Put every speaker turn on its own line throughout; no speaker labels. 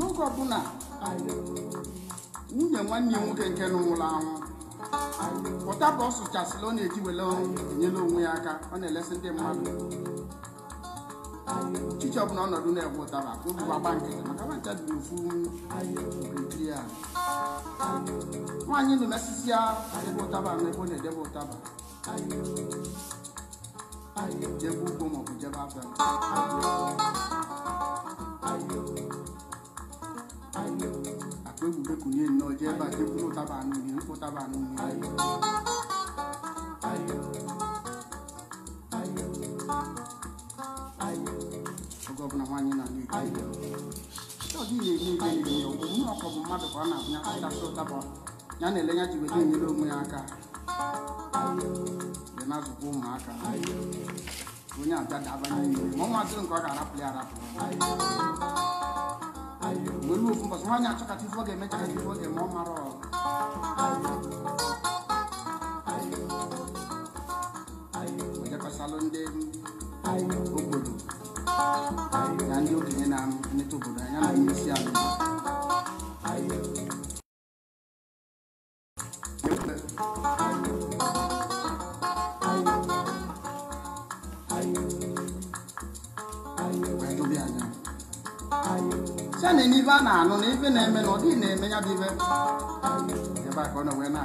n'oge ọbụla nwunye nwanne nwoke nke na nwụrụ anwụ pụtaba ọ sụchasịla ọ na-eji wele enyela onwe ya aka ọ na-elesi ndị mmadụ chichi ọbụla ọnọdụ na-egbe ụtaba obi gbagba nke maka nwancha dị n'ofu nkiri ya nwaanyị na ya ebe ụtaba na ọ na-edebe ụtaba jebe ugbo maọbụ jebe abịa ayo akpegbubekunye nnọọ jee ebe a ụtaba ụtaba na mmadụ ya na-ele ya ji nyere onwe ya aka dị na ụmụaka onye abịa n'ime ma nke ọ ga-arapụ ya nwere ofu mbọsị nwaanyị achọkacha ife ọ ga-eme chakacha ọ ga-eme ọ ndị obodo na ndị okenye na-emetụ obodo anya na onye isi ala ife a na-anụ na n'eme na-eme na ọ na-eme ya bụ ebe a ka ọ na wee na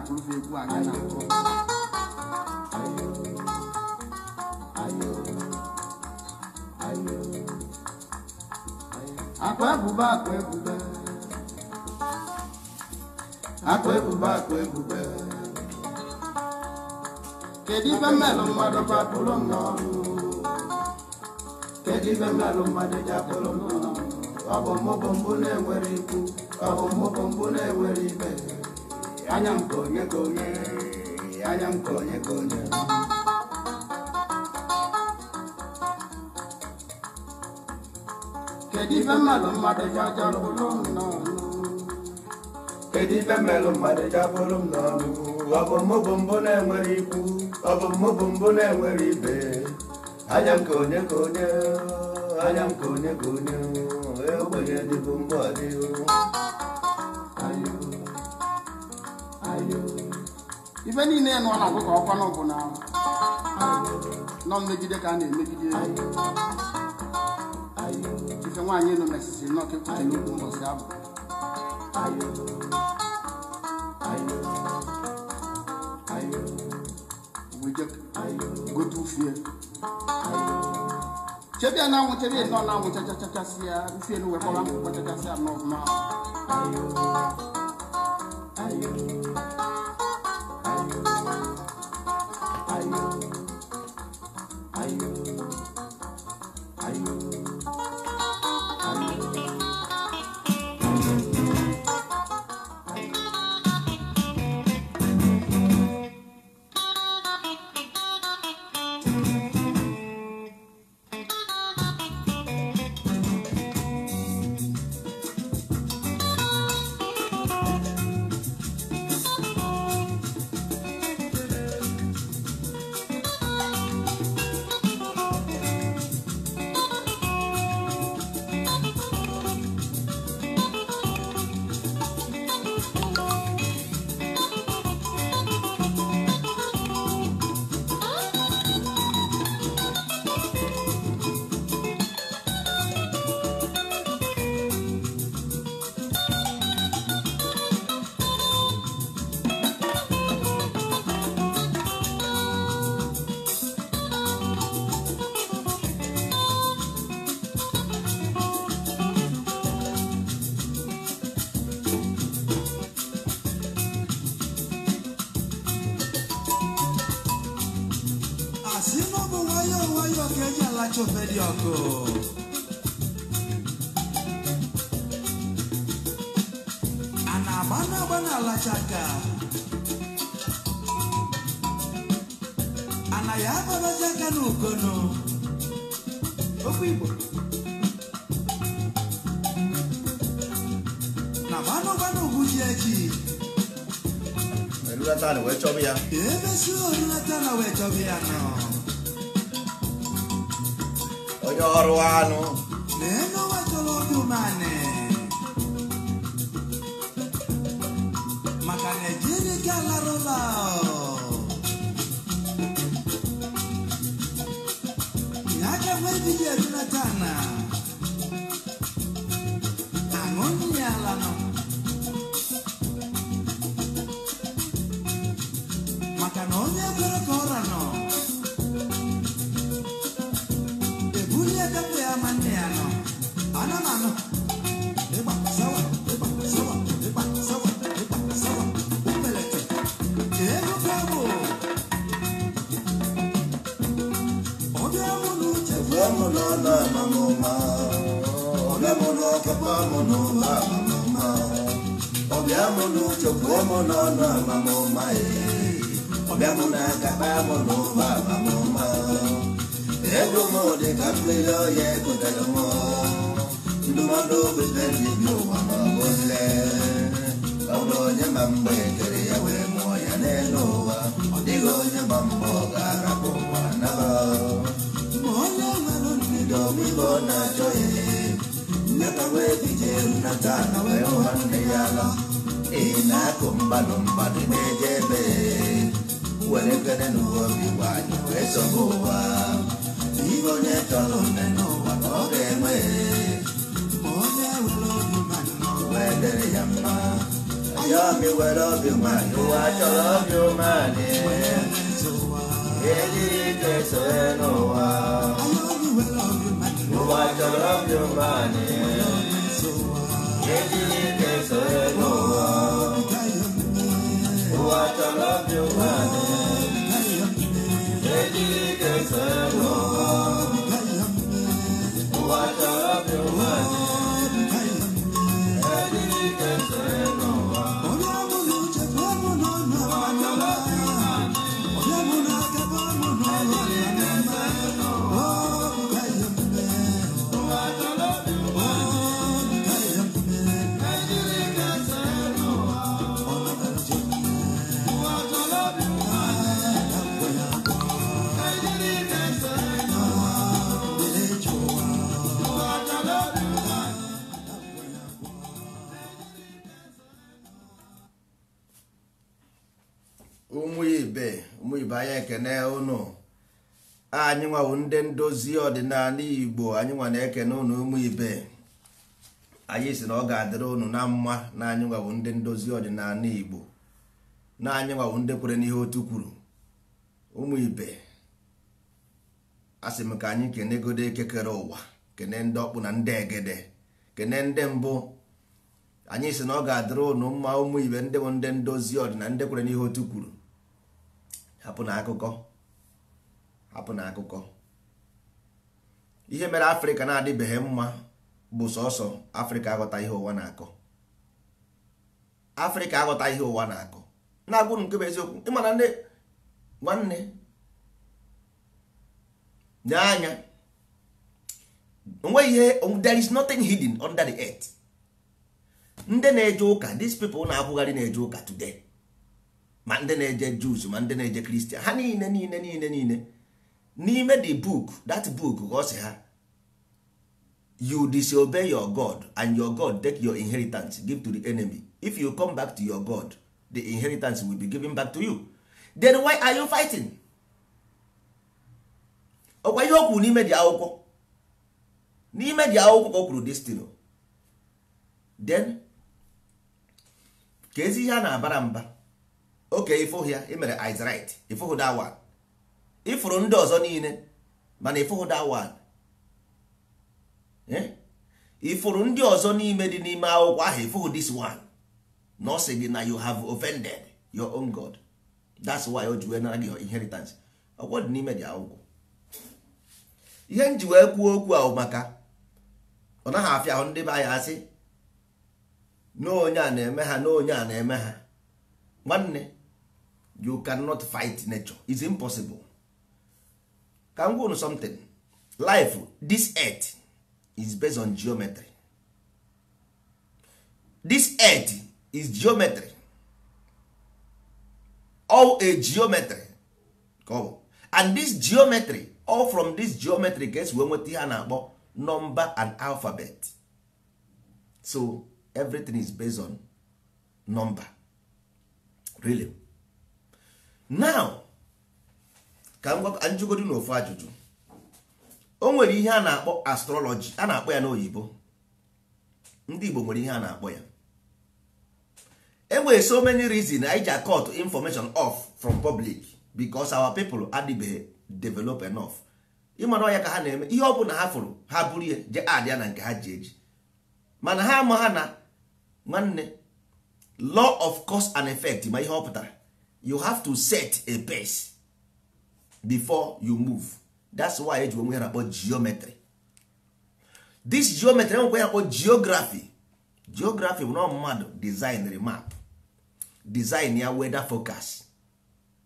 ebube akụ ebube kedu mmelụ mmadụ n'ọrụ kedu mmelụ mmadụ n'ọrụ ọbọmọbọmbụ na-enwere ikwu ọbọmọbọmbụ na-enwere ibe anya nke onye ka onye anya nke onye ka onye kedu ife mmadụ mmadụ ji ajalụ n'ọnụ kedu ife mmelụ mmadụ ji abụrụ m n'ọnụ ọbọmọbọmbụ na-enwere ikwu
ọbọmọbọmbụ na-enwere ibe anya m ka onye ka onye anya m ka onye ka onye ogbenye nile mgbe ọdịghị
niile nọ na ọgụkọ ọkwanụ bụ na nọ mmegide ka a na-emegide ife nwaanyị nọ na esisi nọ n'okwu mbọsị abụ gote ufie chebe na-anwụ chebe nọ na-anwụ chachachachasị ya isi elu wekọrọ chachasị ya nọ
Ọlachi ọkụ a na-agba na-agba na a na ya agbabazi aka n'ukono okwu Igbo
na gbanụgbanụ ugwuji eji
erulata na ya emesi orulata na wee chọba ya nọ Doroano ndozi ọdịnala igbo anyị eke na ụnụ ụmụ ibe anyị si na ọ ga-adịrị ụnụ na mma na anyị nwabụ ndị ndozi ọdịnala igbo na anyị nwabụ ndị kwere n'ihe otu kwuru ụmụ ibe asị m ka anyị kene godo ekekere ụwa kene ndị ọkpụ na ndị egede kene ndị mbụ anyị si na ọ ga-adịrị ụnụ mma ụmụ ibe ndị bụ ndị ndozi ọdịnala ndị kwere n'ihe otu kwuru hapụ na akụkọ hapụ na akụkọ ihe mere afrịka na-adịbeghị mma bụ sọsọ afrịka aghọta ihe ụwa na-akọ afrịka aghọta ihe ụwa na-akọ na-agwụrụ nke bụ eziokwu ịmana ndị nwanne nye anya onweghị ihe there is nothing hidden under the earth ndị na-eje ụka these people na-akwụgharị na-eje ụka today ma ndị na-eje Jews ma ndị na-eje Christian ha niile niile niile niile n'ime the book that book ọ ha you disobey your god and your god take your inheritance give to the enemy if you come back to your god the inheritance will be given back to you then why are you fighting ọkwa ihe o kwuru n'ime dị akwụkwọ n'ime dị akwụkwọ ka o kwuru destiny then ka ezi ihe a na-abara mba oke ifụhịa imere Israel ifụhụ that one ifuru ndị ọzọ niile mana ịfụghị that one eh? ifuru ndị ọzọ n'ime dị n'ime akwụkwọ ahụ ịfụghị this one na ọ sị gị na you have offended your own God that's why o ji wee nara gị inheritance ọgwọ dị n'ime dị akwụkwọ ihe m ji wee kwuo okwu ahụ maka ọ naghị afịa ahụ ndị be anyị asị a na-eme ha na a na-eme ha nwanne you cannot fight nature it's impossible ka m gwa something life this earth is based on geometry this earth is geometry all a geometry come and this geometry all from this geometry gets wee nweta ihe a na-akpọ number and alphabet so everything is based on number really now ka m gwa na ofu ajụjụ o nwere ihe a na-akpọ astrology a na-akpọ ya n'oyibo ndị Igbo nwere ihe a na-akpọ ya enwere so many reason anyị ji akọt information off from public because our people adịbeghị develop enough ịmara ọya ka ha na-eme ihe ọ bụla ha fụrụ ha bụrụ ihe je adịa na nke ha ji eji mana ha ama ha na nwanne law of cause and effect ma ihe ọ pụtara you have to set a pace before you move that's why eji onwe ya na geometry this geometry enwekwa ya akpọ geography geography bụ na mmadụ design map design ya weather focus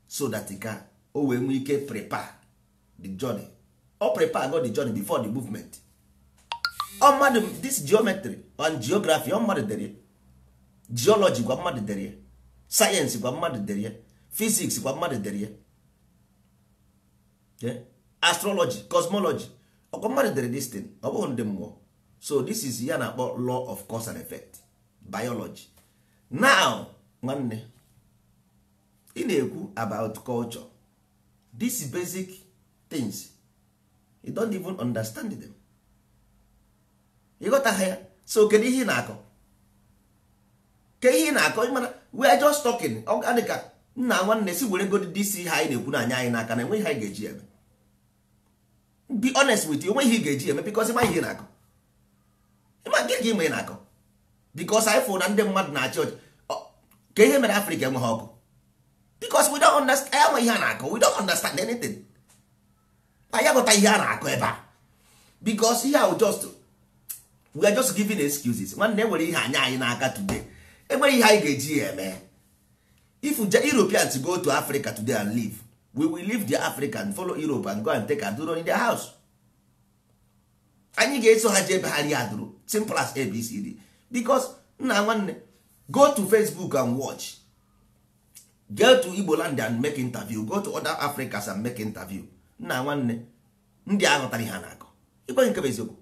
so that ka o wee nwee ike prepare the journey o oh, prepare go the journey before the movement ọ oh, mmadụ this geometry and geography ọ oh, mmadụ dere geology gwa mmadụ dere sayensị gwa mmadụ dere physics gwa mmadụ dere astrology cosmology ọkwa mmadụ dere this thing ọ bụghị ndị mmụọ so this is ya na-akpọ law of cause and effect biology now nwanne ị na-ekwu about culture these basic things you don't even understand them ịghọtaghị ya so kedu ihe ị na-akọ ke ihe ị na-akọ ịmana we are just talking ọ ga dịka nna nwanne si were godi dị isi ihe anyị na-ekwu na anya anyị n'aka na enweghị anyị ga-eji eme be honest with you enweghị ihe ga-eji eme because ịma ihe na-akọ ịma nke ka ị na-akọ because anyị fụrụ na ndị mmadụ na achọ ọchị ka ihe mere Afrịka enweghị ọkụ because we don't understand enwe ihe a na-akọ we don't understand anything anyị agụta ihe a na-akọ ebe a because ihe ahụ just we are just giving excuses nwanne nwere ihe anya anyị n'aka today enweghị ihe anyị ga-eji ya eme if europeans go to africa today and live we will leave the africa and follow europe and go and take aduro in their house anyị ga-eso ha jebe ha rie aduro simple as abcd because nna nwanne go to facebook and watch go to igbo and make interview go to other africas and make interview nna nwanne ndị aghọtara ha na-akọ ịgwa nke bụ eziokwu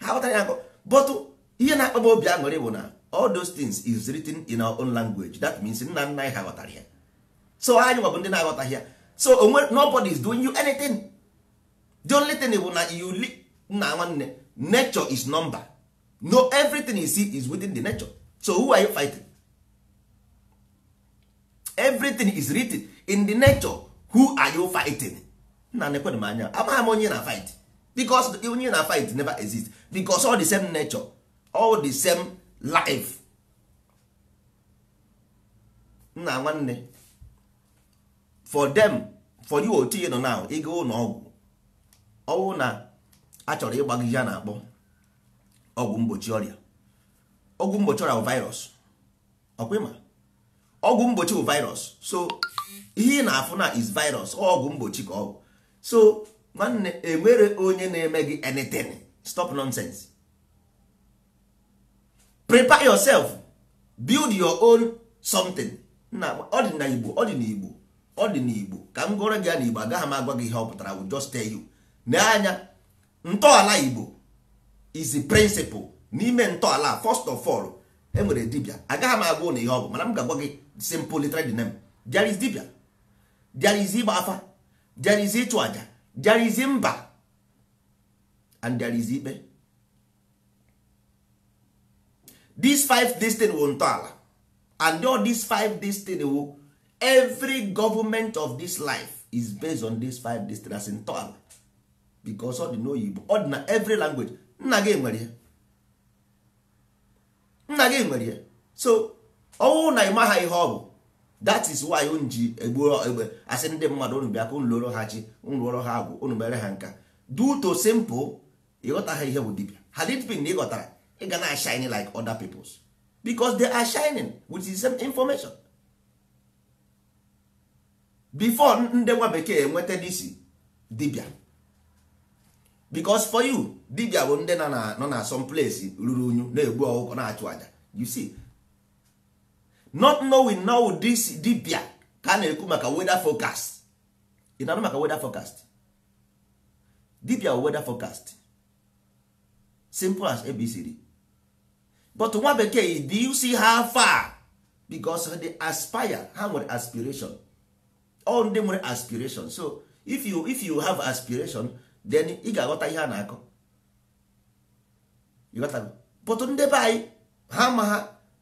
ha aghọtara ya akọ bọtụ ihe na-akpa obi aṅụrị bụ na all those things is written in our own language that means nna nna anyị ha ghọtara ya so anyị nwabụ ndị na-aghọtaghị ya so onwe nobody is doing you anything the only thing bụ na you nna nwanne nature is number no everything you see is within the nature so who are you fighting everything is written in the nature who are you fighting nna nekwenụ m anya amaghị m onye na fight because onye na fight never exist because all the same nature all the same live nna nwanne for them for you oti nọ now ego ụlọ ọgwụ ọwụ na achọrọ chọrọ ya na-akpọ ọgwụ mgbochi ọrịa ọgwụ mgbochi ọrịa virus ọkwịma ọgwụ mgbochi bụ virus so ihe ị na-afụ na is virus ọgwụ mgbochi ka ọ bụ so nwanne enwere onye na-eme gị anything stop nonsense prepare yourself build your own something na ọ dị na igbo ọ dị na igbo ọ dị na igbo ka m gụrụ gị ya na igbo agaghị m agwa gị ihe ọ pụtara will just tell you n'anya ntọala igbo is the principal n'ime ntọala first of all e nwere dibia agaghị m agwa ụnụ ihe ọ bụ mana m ga-agwa gị simple literal name n'em. is dibia there is ịgba afa there ịchụ aja there mba and there ikpe these five destin wụ ntọala and all these five destin wụ every government of this life is based on these five destin as ntọala because ọ dị n'oyibo ọ dị na every language nna gị nwere ya nna gị nwere ya so ọnwụ na ịmaha ihe ọ bụ that is why unu ji egbuo egbe asị ndị mmadụ unu bịa ka unu lụrụ ha chi unu lụrụ ha agwụ unu mere ha nka due to simple ịghọta ha ihe bụ dibia ha dịtbin na ịghọtara going ga na shine like other peoples because they are shining with the same information before ndị nwa bekee enweta DC dibia because for you dibia bụ ndị nọ na some place ruru unyu na-egbu ọgwụgwọ na-achụ aja you see not knowing now this dibia ka a na-ekwu maka weather forecast ị maka weather forecast dibia weather forecast simple as abcd but nwa bekee do you see how far because they aspire ha nwere aspiration all ndị nwere aspiration so if you if you have aspiration then ị ga-aghọta ihe a na-akọ but ndị be anyị ha ma ha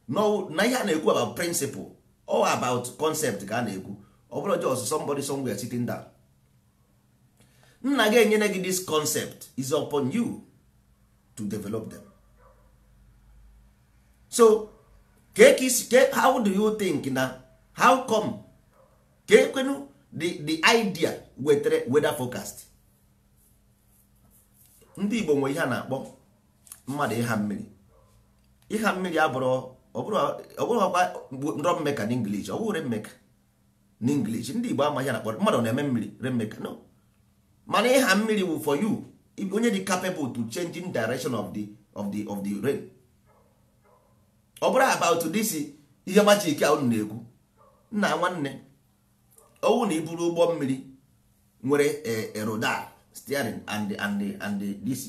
na ihe a na-ekwu about principle or about concept ka a na-ekwu ọ bụrụ just somebody somewhere sitting down nna ga-enyere gị this concept is upon you to develop them so ka kee how do you think na how come ka ekwenu the the idea wetere weather forecast ndị Igbo nwe ihe a na-akpọ mmadụ ịha mmiri ịha mmiri abụrụ ọbụrụkwa nrọ mmeka n'inglish ọ bụrụ remmeka n'inglish ndị Igbo amaghị na-akpọ mmadụ na-eme mmiri remmeka no mana ịha mmiri wụ for you onye dị capable to changing direction of the of the of the rain ọ bụrụ about this ihe machik a unu na-ekwu nna nwanne owu na iburu ụgbọ mmiri nwere eroda eh, eh, steering and and and this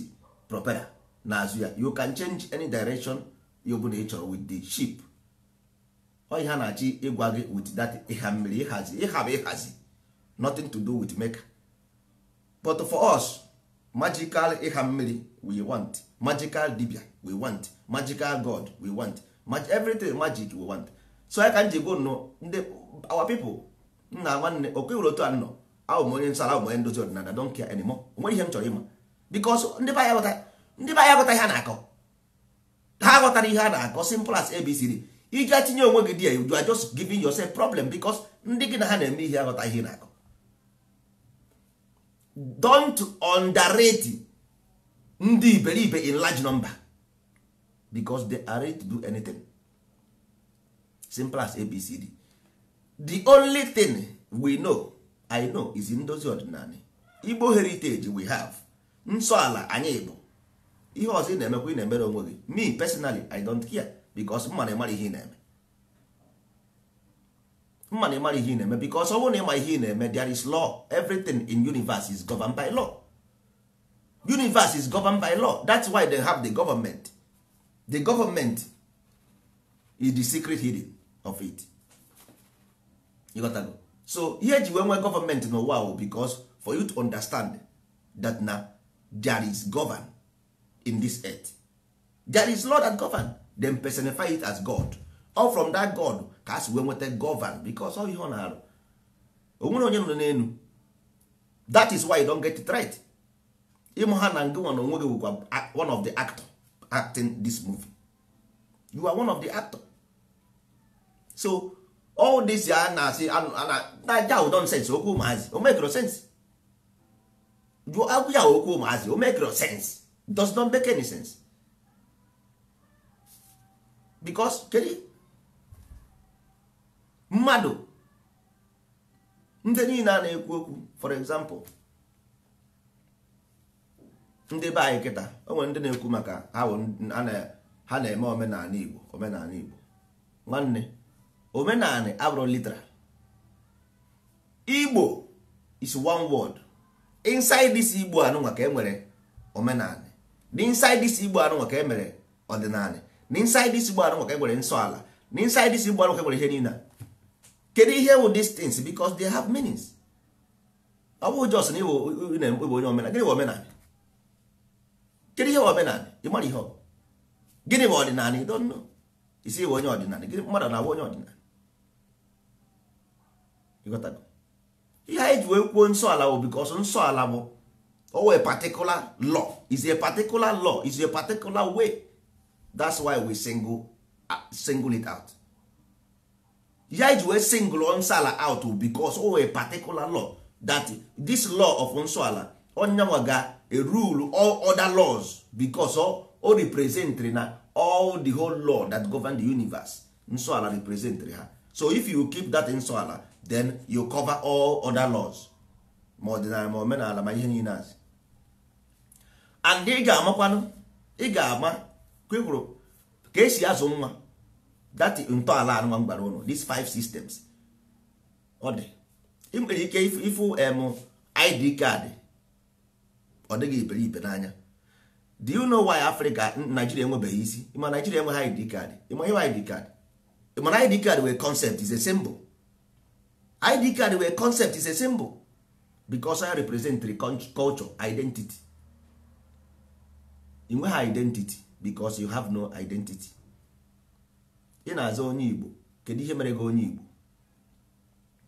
na n'azụ ya you can change any direction you bụla ị chọrọ with the ship ọ ihe na-achị ịgwa gị with that ịha mmiri ịhazi ịha bụ ịhazi nothing to do with maker but for us magical ịha mmiri we want magical dibia we want magical god we want Mag everything magic we want so ya ka m ji gwo nnọọ ndị our people nna nwanne okwe were otu a nnọọ ahụ m onye nsara ahụ m onye ndozi ọdịnala don't care anymore onwere ihe m chọrọ ịma because ndị be anyị aghọta ihe a na-akọ ha aghọtara ihe a na-akọ simple as abcd iji tinye onwe gị di ya you are just giving yourself problem because ndị gị na ha na-eme ihe aghọta ihe na-akọ don't underrate ndị iberibe in large number. because they are ready to do anything simple as abcd the only thing we know i know is in ndozi ọdịnala igbo heritage we have nsọ ala anyị bụ ihe ọzọ ị na-emekwa ị na-emere onwe gị me personally i don't care because money, money ịmara ihe ị na-eme mma na ịmara ihe ị na-eme because ọ bụrụ na ịma ihe ị na-eme there is law everything in universe is governed by law universe is governed by law that's why they have the government the government is the secret hidden of it ịghọtago so here ji wee nwee gọọmenti n'ụwa because bicos for you to understand that na there is govern in this earth there is law that govern then personify it as god or from that god ka a si wee nweta govern bicos ọ ihe ọ na-arụ onwere onye nọ n'elu that is why you don't get it right ịmụ ha na na onwe gị one of the actor acting this movie you are one of the actor so all this ya na asị naja wụ sense, okwu ụmụazị o mekro sense jụọ agwụ ya okwu ụmụazị o mekro sense does not make any sense because kedu mmadụ ndị niile a na-ekwu okwu for example ndị be anyị kịta o nwere ndị na-ekwu maka ha na-eme omenala Igbo omenala Igbo nwanne omenala abụrụ literal Igbo is one word inside this Igbo anụnwa ka e nwere omenala inside this Igbo anụnwa ka e mere ọdịnala inside this Igbo anụnwa ka e nwere nsọ ala inside this Igbo anụnwa ka e nwere ihe niile kedu ihe wụ distance things because they have meanings ọ bụghị jos na Igbo onye omenala gịnị bụ omenala kedu ihe omenala ịmara ihe ọ bụ gịnị bụ ọdịnala ị don't know isi iwe onye ọdịnala gịnị mmadụ na-abụ onye ọdịnala ịghọtago ihe anyị ji wee kwuo nsọ ala bụ bikos nsọ ala bụ owe particular law is a particular law is a particular way that's why we single, uh, single it out ihe anyị ji wee single nsọ ala out bikos owe particular law that this law of nsọ ala onye nwa ga a rule all other laws because o representri na all the whole law that govern the universe nsọala representri ha so if you keep that nsọala then you cover all other laws ma ọdịnala ma omenala ma ihe niile azụ and ị ga-amakwanụ ị ga-ama kwekwuru ka esi azụ nwa that ntọala anụnwa mgbara ụlọ these five systems ọ dị ị nwere ike ifu id card. ọ dịghị iberibe n'anya do you know why Africa Nigeria enwebeghị isi ịma Nigeria enweghị ID card ịma ihe ID card ịmana ID card wee concept is a symbol ID card wee concept is a symbol because I represent the culture identity ị nweghị identity because you have no identity ị na-azụ onye Igbo kedu ihe mere gị onye Igbo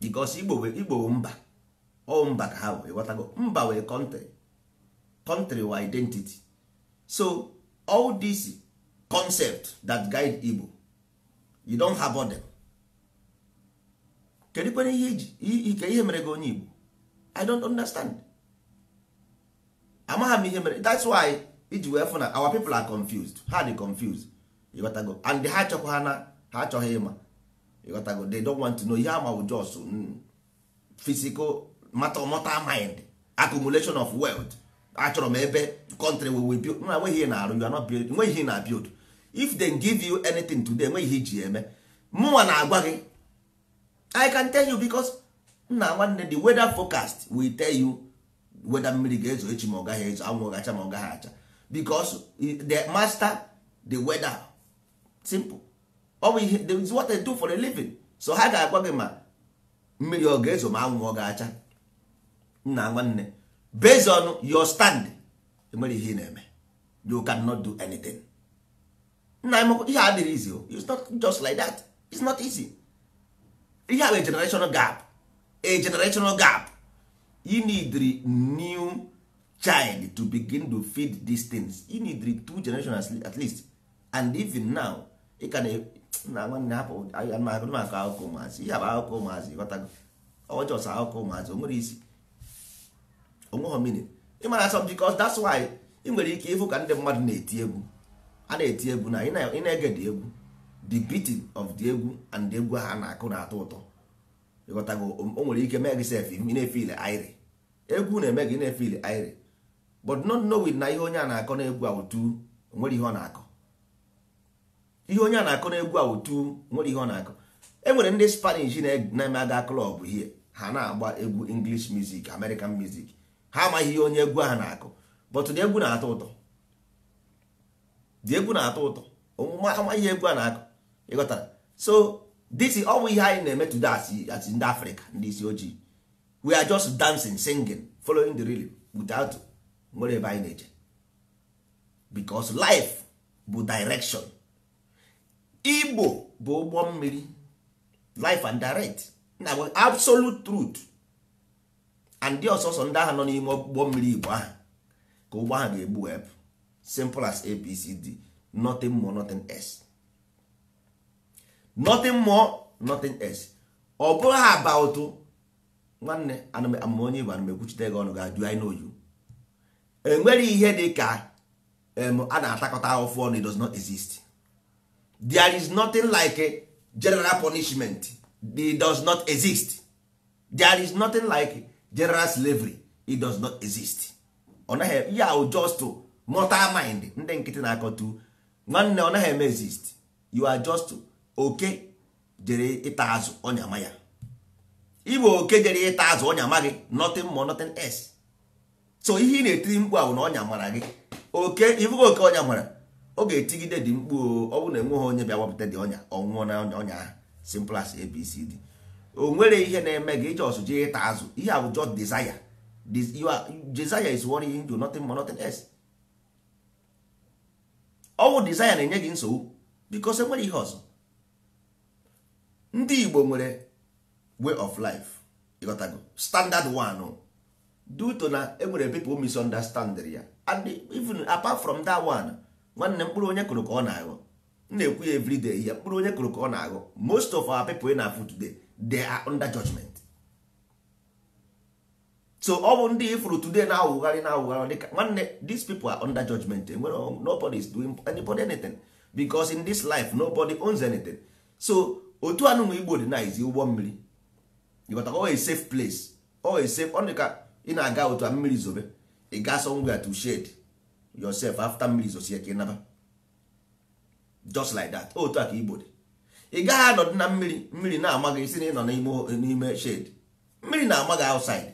because Igbo Igbo mba ọ mba ka ha wee ghọtago mba wee kọntrị country or identity so all these concept that guide igbo you don't have them kedu kwana ihe ihe mere gị onye igbo i don't understand amaghị m ihe mere that's why iji wee fụ our people are confused ha they confused go. and ha achọkwa ha na ha achọghị ịma ịghọtago they don't want to know ihe ama just mm, physical matter of mind accumulation of wealth achọrọ m ebe kọntrị we build na nweghị ihe na you are not build nweghị ihe na build if they give you anything today enweghị ihe ji eme mụnwa na-agwa gị i can tell you because nna nwanne the weather forecast will tell you weather mmiri ga-ezo echi ma ọ gaghị ezo anwụ gacha ma ọ gaghị acha because the master the weather simple ọ bụ ihe is what they do for a living so ha ga-agwa gị ma mmiri ọ ga-ezo ma anwụ ọ ga-acha nna nwanne based on your stand enwere ihe ị na-eme you can not do anything nna m ihe adịghị easy o it's not just like that it's not easy ihe a bụ generational gap a generational gap you need new child to begin to feed these things you need two generations at least and even now ị ka na nwanne hapụ akụkọ ụmụazị ihe bụ akụkọ ụmụazị ghọtago ọjọọ akụkọ ụmụazị o nwere isi onweghị meaning ịmara some because that's why ị nwere ike ịfụ ka ndị mmadụ na-eti egwu a na-eti egwu na ị na-ege dị egwu the beating of the egwu and egwu ha na-akụ na-atọ ụtọ ịghọtago o nwere ike mee gị sef na-efil aịrị egwu na-eme gị na-efil aịrị but not knowing na ihe onye a na-akọ na-egwu otu nwere ihe ọ na-akọ ihe onye a na-akọ na-egwu otu nwere ihe ọ na-akọ e nwere ndị spanish na-eme aga klọb hie ha na-agba egwu english music american music ha amaghị ihe onye egwu ahụ na-akụ bọtụ na egwu na-atọ ụtọ dị egwu na-atọ ụtọ omume amaghị egwu a na-akụ ịghọtara so this ọ bụ ihe anyị na-eme today as ndị afrịka ndị isi ojii we are just dancing singing following the rhythm without nwere ebe anyị na-eje because life bụ direction igbo bụ ụgbọ mmiri life and direct na absolute truth and ndị ọsọsọ ndị agha nọ n'ime ụgbọ mmiri igbo ahụ ka ụgbọ ahụ ga-egbu wee simple as abcd nothing more nothing else nothing more nothing else ọ bụrụ ha about nwanne ama onye igbo ekwuchite gị ọnụ ga-ajụ anyị n'oyu enwere ihe dị ka a na-atakọta ahụfụ ọnụ it does not exist there is nothing like general punishment it does not exist there is nothing like general slavery it does not exist ọ naghị ya just mortal mind ndị nkịtị na-akọtu nwanne ọ naghị eme exist you are just oke jere ịta azụ ọnya ma ya ịbụ oke jere ịta azụ ọnya ma gị nothing more nothing else so ihe ị na-etiri mkpu ahụ na ọnya mara gị oke ịbụghị oke ọnya mara ọ ga-etigide dị mkpu ọ bụrụ na enweghị onye bịa wapụta dị ọnya ọnwụọ na ọnya ọnya ahụ simple as abcd o nwere ihe na-eme gị ọsụ jee ịta azụ ihe a bụ just desire desire is what ihe do nothing more nothing else ọwụ desire na-enye gị nsogbu because enwere ihe ọzọ ndị Igbo nwere way of life ịghọtago standard one due to na enwere people misunderstand ya and even apart from that one nwanne mkpụrụ onye kụrụ ka ọ na-aghọ m na-ekwu ya everyday ya mkpụrụ onye kụrụ ka ọ na-aghọ most of our people ị na-afụ today they are under judgment so ọ bụ ndị ifuru today na-awụgharị na-awụgharị dịka nwanne these people are under judgment nobody is doing anybody anything because in this life nobody owns anything so otu anu anụnwa igbo dị na izi ụgbọ mmiri ịghọta ọ a safe place ọ a safe o ka dịka ị na-aga otu a mmiri zobe ị gaa somewhere to shade yourself after mmiri zosie ka ị naba just like that otu a ka igbo dị ị gaghị anọdụ na mmiri mmiri na-ama gị isi na ịnọ n'ime shed mmiri na-ama gị outside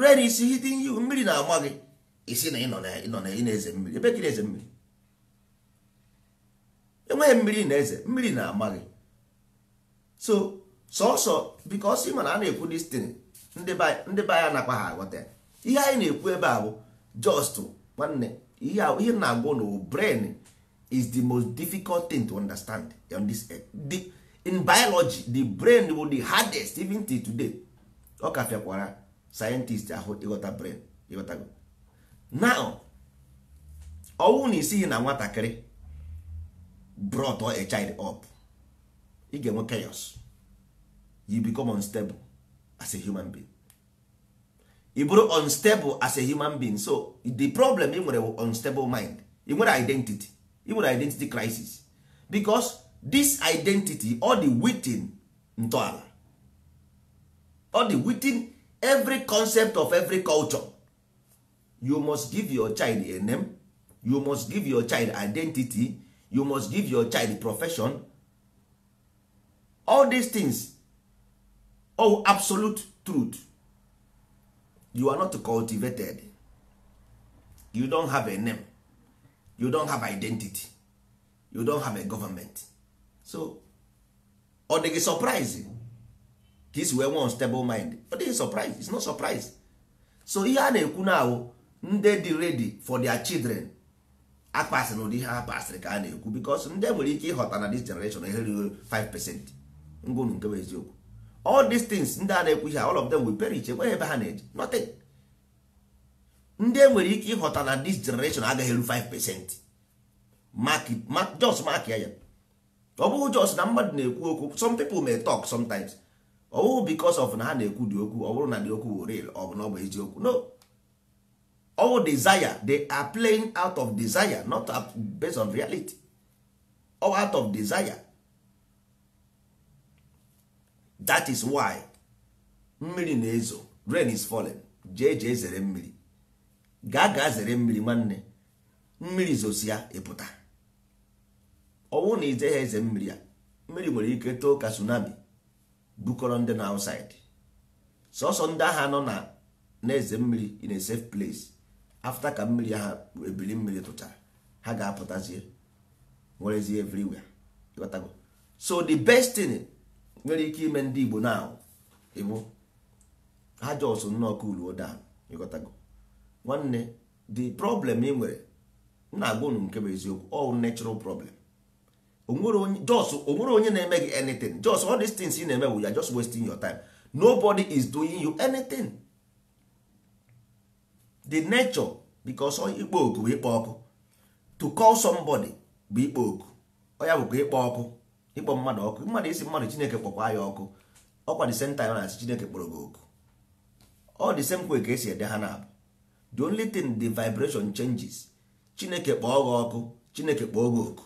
rue na isi hitting you mmiri na-ama gị isi na ịnọ na ị na-eze mmiri ebe gị na-eze mmiri enweghị mmiri na-eze mmiri na-ama gị so sọsọ because ị ma na a na-ekwu destin ndị be anya nakwa ha aghọta ihe anyị na-ekwu ebe a bụ just nwanne ihe na-agwụ na brain is the most difficult thing to understand on this earth. The, in biology the brain will the hardest even till today ọ ka fịakwara scientist ahụ ịghọta brain now ọnwụ na isighi na nwatakịrị brought a child up ị ga-enwe chaos you become unstable as a human being ị bụrụ unstable as a human being so the problem ị nwere unstable mind ị nwere identity even identity crisis because this identity all the within ntọala all the within every concept of every culture you must give your child a name you must give your child identity you must give your child profession all these things Oh, absolute truth you are not cultivated you don't have a name you don't have identity you don't have a government so ọ dịghị surprise ka isi wee nwee stable mind ọ dịghị surprise it's not surprise so ihe a na-ekwu na ahụ ndị dị ready for their children akpasị na ụdị ihe a pasịrị ka a na-ekwu because ndị nwere ike ịghọta na this generation eherighị 5 percent ngwụnụ nke bụ eziokwu all these things ndị a na-ekwu ihe all of them will perish enweghị ebe ha na-eje nothing ndị enwere ike ịghọta na this generation agaghị eru 5 percent just mark ya ya ọ bụghị just na mmadụ na-ekwu okwu some people may talk sometimes ọ bụghị because of na ha na-ekwu dị okwu ọ bụrụ na dị okwu bụ real ọ bụ na ọ bụ eziokwu no all desire they are playing out of desire not based on reality Or out of desire that is why mmiri na-ezo rain is falling jee jee zere mmiri gaa gaa zere mmiri nwanne mmiri zosia ịpụta ọnwụ na ize ha eze mmiri a mmiri nwere ike too ka tsunami bukọrọ ndị na outside sọsọ ndị agha nọ na na-eze mmiri in a safe place afta ka mmiri ha ebili mmiri tụchara ha ga-apụtazie nwerezie everywhere so the best thing nwere ike ime ndị Igbo na ịbụ ha jọsụ nnọọ kuluo dan ịghọtago nwanne the problem ị nwere m na-agwa unu nke bụ eziokwu all natural problem onwere onye na-eme gị anything just all these things ị na-eme wu ya just wasting your time nobody is doing you anything the nature because ikpo oku bụ ikpo ọkụ to call somebody bụ ikpo oku ọya bụkwa ikpo ọkụ ịkpọ mmadụ ọkụ mmadụ isi mmadụ chineke kpọkwa ya ọkụ ọkwa the same time na asị chineke kpọrọ gị oku ọ the same way ka esi ede ha na-abụ the only thing the vibration changes chineke kpọọ gị ọkụ chineke kpọọ gị oku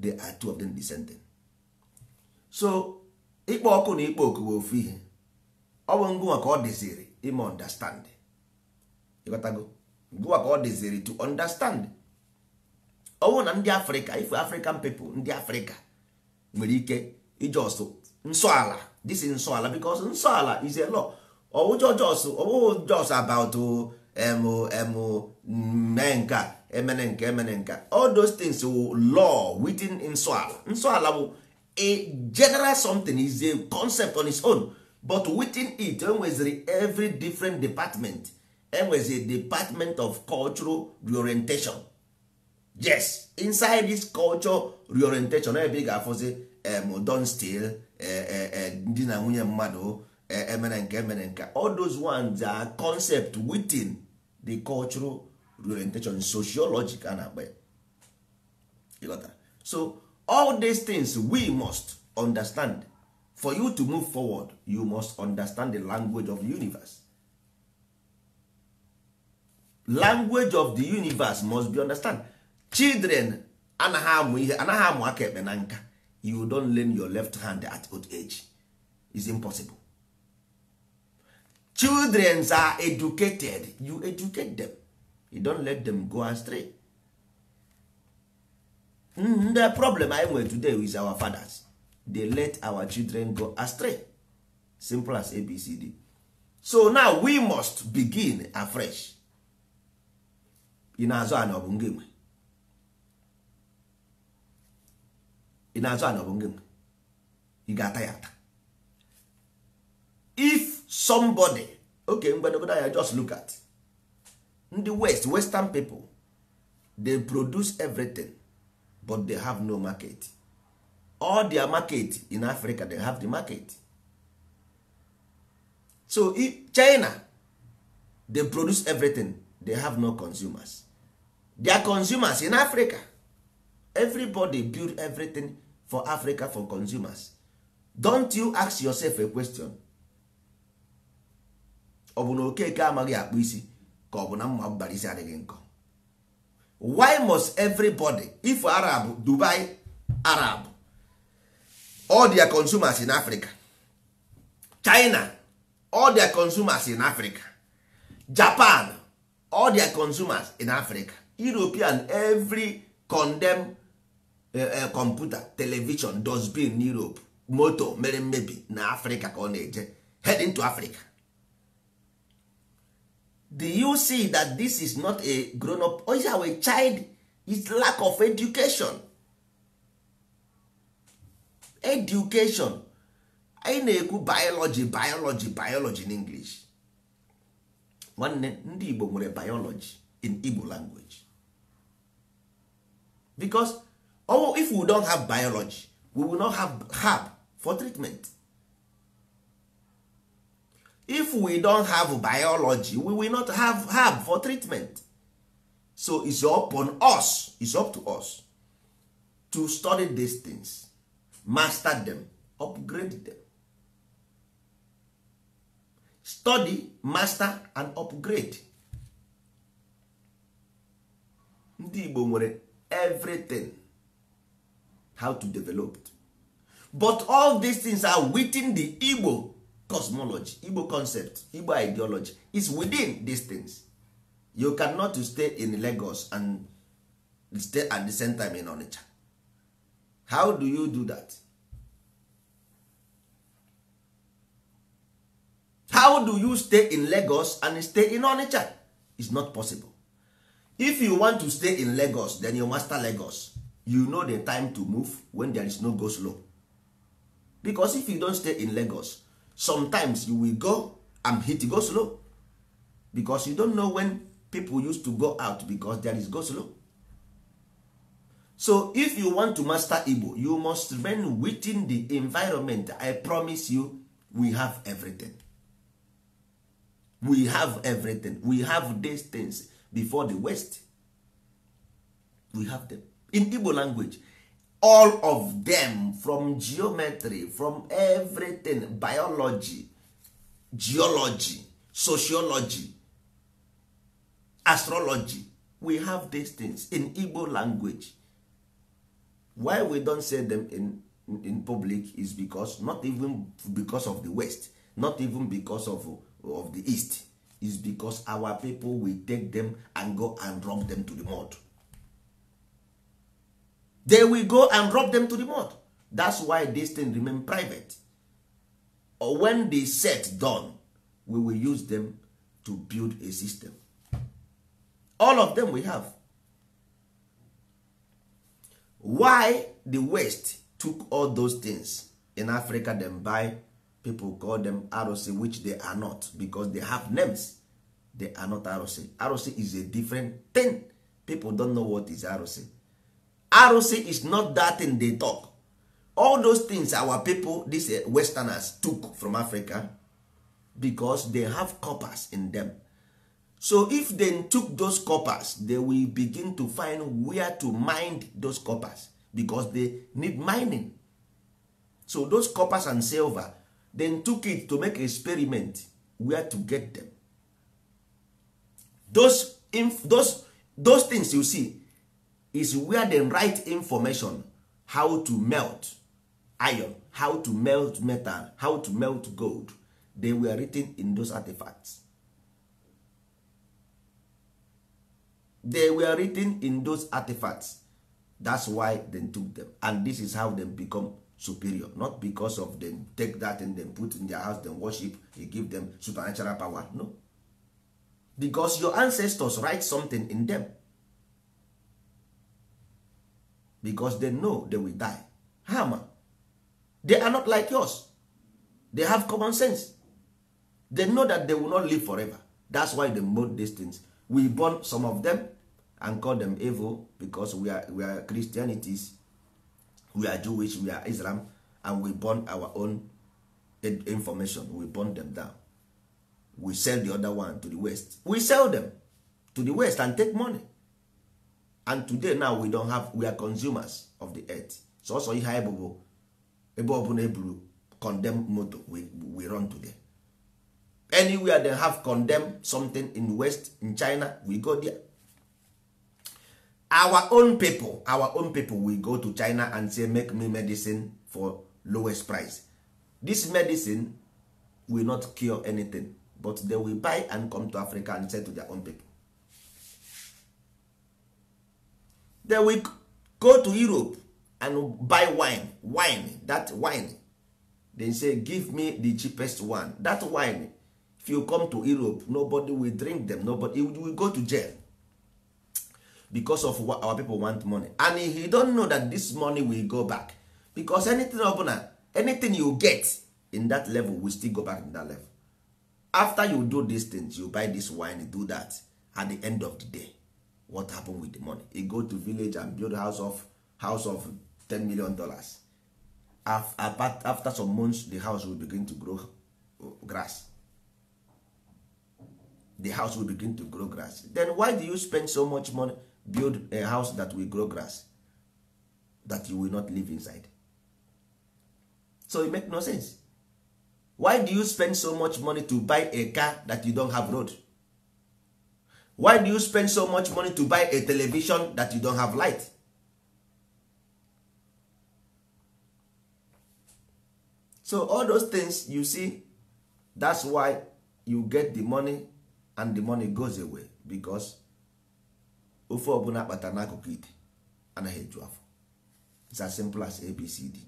they are two of them descending so ịkpọ ọkụ na ịkpọ oku bụ ofu ihe ọ bụ ngụnwa ka ọ dịziri ime understand ịghọtago ngụnwa ka ọ dịziri to understand ọ bụrụ na ndị afrịka ife african people ndị afrịka nwere ike ijọsụ nsọala disi nsọala because nsọala is a law ọwụjọ jos jos about emu mee emene emene all those things wụ law within nsọala nsọala bụ a general something is a concept on its own but within it enweziri every different department enwezi department of cultural reorientation yes inside this culture reorientation ebe ị ga-afụzi em don stil ndị eh, eh, eh, na nwunye mmadụ emere eh, eh, nke emere eh, nke all those ones are concept within the cultural orientation and a na got ya so all these things we must understand for you to move forward you must understand the language of the universe language of the universe must be understand children anaghị amụ ihe anaghị amụ aka ekpe na nka you don't learn your left hand at old age is impossible children are educated you educate them you don't let them go astray mm, the problem i nwere today with our fathers they let our children go astray simple as abcd so now we must begin afresh ị na-azụ ana ọ bụ ngị nwe na-azụ ana ọ bụ ngị nwe ị ga-ata ya ata if somebody okay mgbadogodo anya just look at ndị west western people they produce everything but they have no market all their market in africa they have the market so china they produce everything they have no consumers their consumers in africa everybody build everything for africa for consumers don't you ask yourself a question ọ bụ na okeke amaghị akpụ isi ka ọ bụ na mma mbara isi adịghị nkọ why must everybody if arab dubai arab all their consumers in africa china all their consumers in africa japan all their consumers in africa european every condemn uh, eh, uh, eh, computer television in europe moto mere mmebi na africa ka ọ na-eje heading to africa do you see that this is not a grown up or is our child is lack of education education anyị na-ekwu biology biology biology in english nwanne ndị igbo nwere biology in igbo language because oh, if we don't have biology we will not have herb for treatment if we don't have biology we will not have herb for treatment so it's up on us it's up to us to study these things master them upgrade them study master and upgrade ndị igbo nwere everything how to develop it? but all these things are within the igbo cosmology igbo concept igbo ideology is within these things you cannot stay in lagos and stay at the same time in onitsha how do you do that how do you stay in lagos and stay in onitsha It's not possible if you want to stay in lagos then you master lagos you know the time to move when there is no go slow because if you don't stay in lagos sometimes you will go and hit go slow because you don't know when people used to go out because there is go slow so if you want to master igbo you must learn within the environment i promise you we have everything we have everything we have these things before the west we have them in igbo language all of them from geometry from everything biology geology sociology astrology we have these things in igbo language why we don't say them in, in, in public is because not even because of the west not even because of, of the east is because our people will take them and go and drop them to the mud they will go and rob them to the mud that's why this thing remain private or when the set done we will use them to build a system all of them we have why the west took all those things in africa them by people call them arụsị which they are not because they have names they are not arụsị arụsị is a different thing people don't know what is arụsị arụsị is not that thing they talk all those things our people these eh, westerners took from africa because they have coppers in them so if they took those coppers they will begin to find where to mine those coppers because they need mining so those coppers and silver then took it to make experiment where to get them those, those, those things you see is where the right information how to melt iron how to melt metal how to melt gold they were written in those artifacts they were written in those artifacts that's why they took them and this is how they become superior not because of them take that and then put in their house then worship they give them supernatural power no because your ancestors write something in them because they know they will die Hammer. they are not like us they have common sense they know that they will not live forever that's why they mold these things we burn some of them and call them evil because we are, we are christianities we are jewish we are islam and we burn our own information we burn them down we sell the other one to the west we sell them to the west and take money and today now we don have we are consumers of the earth sọsọ ihe anyị bụbụ ebe ọbụla eburu condemn moto we, we run today anywhere they have condemn something in west in china we go there our own people our own people we go to china and say make me medicine for lowest price this medicine will not cure anything but they will buy and come to africa and sell to their own people then we go to europe and buy wine wine that wine they say give me the cheapest one that wine if you come to europe nobody will drink them nobody will go to jail because of what our people want money and he don't know that this money will go back because anything ọbụla anything you get in that level will still go back in that level after you do these things you buy this wine do that at the end of the day what happened with the money he go to village and build house of house of 10 million dollars after some months the house will begin to grow uh, grass the house will begin to grow grass then why do you spend so much money build a house that will grow grass that you will not live inside so it make no sense why do you spend so much money to buy a car that you don't have road why do you spend so much money to buy a television that you don't have light so all those things you see that's why you get the money and the money goes away because ofe ọbụla kpatara n'akụkụ ite anaghị eju afọ it's as simple as abcd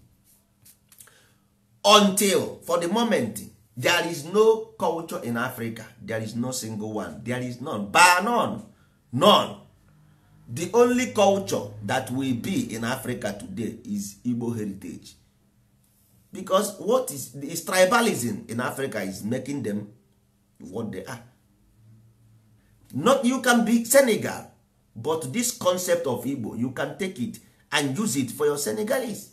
until for the moment there is no culture in africa there is no single one there is none bar none none the only culture that will be in africa today is igbo heritage because what is, is tribalism in africa is making them what they are not you can be senegal but this concept of igbo you can take it and use it for your senegalese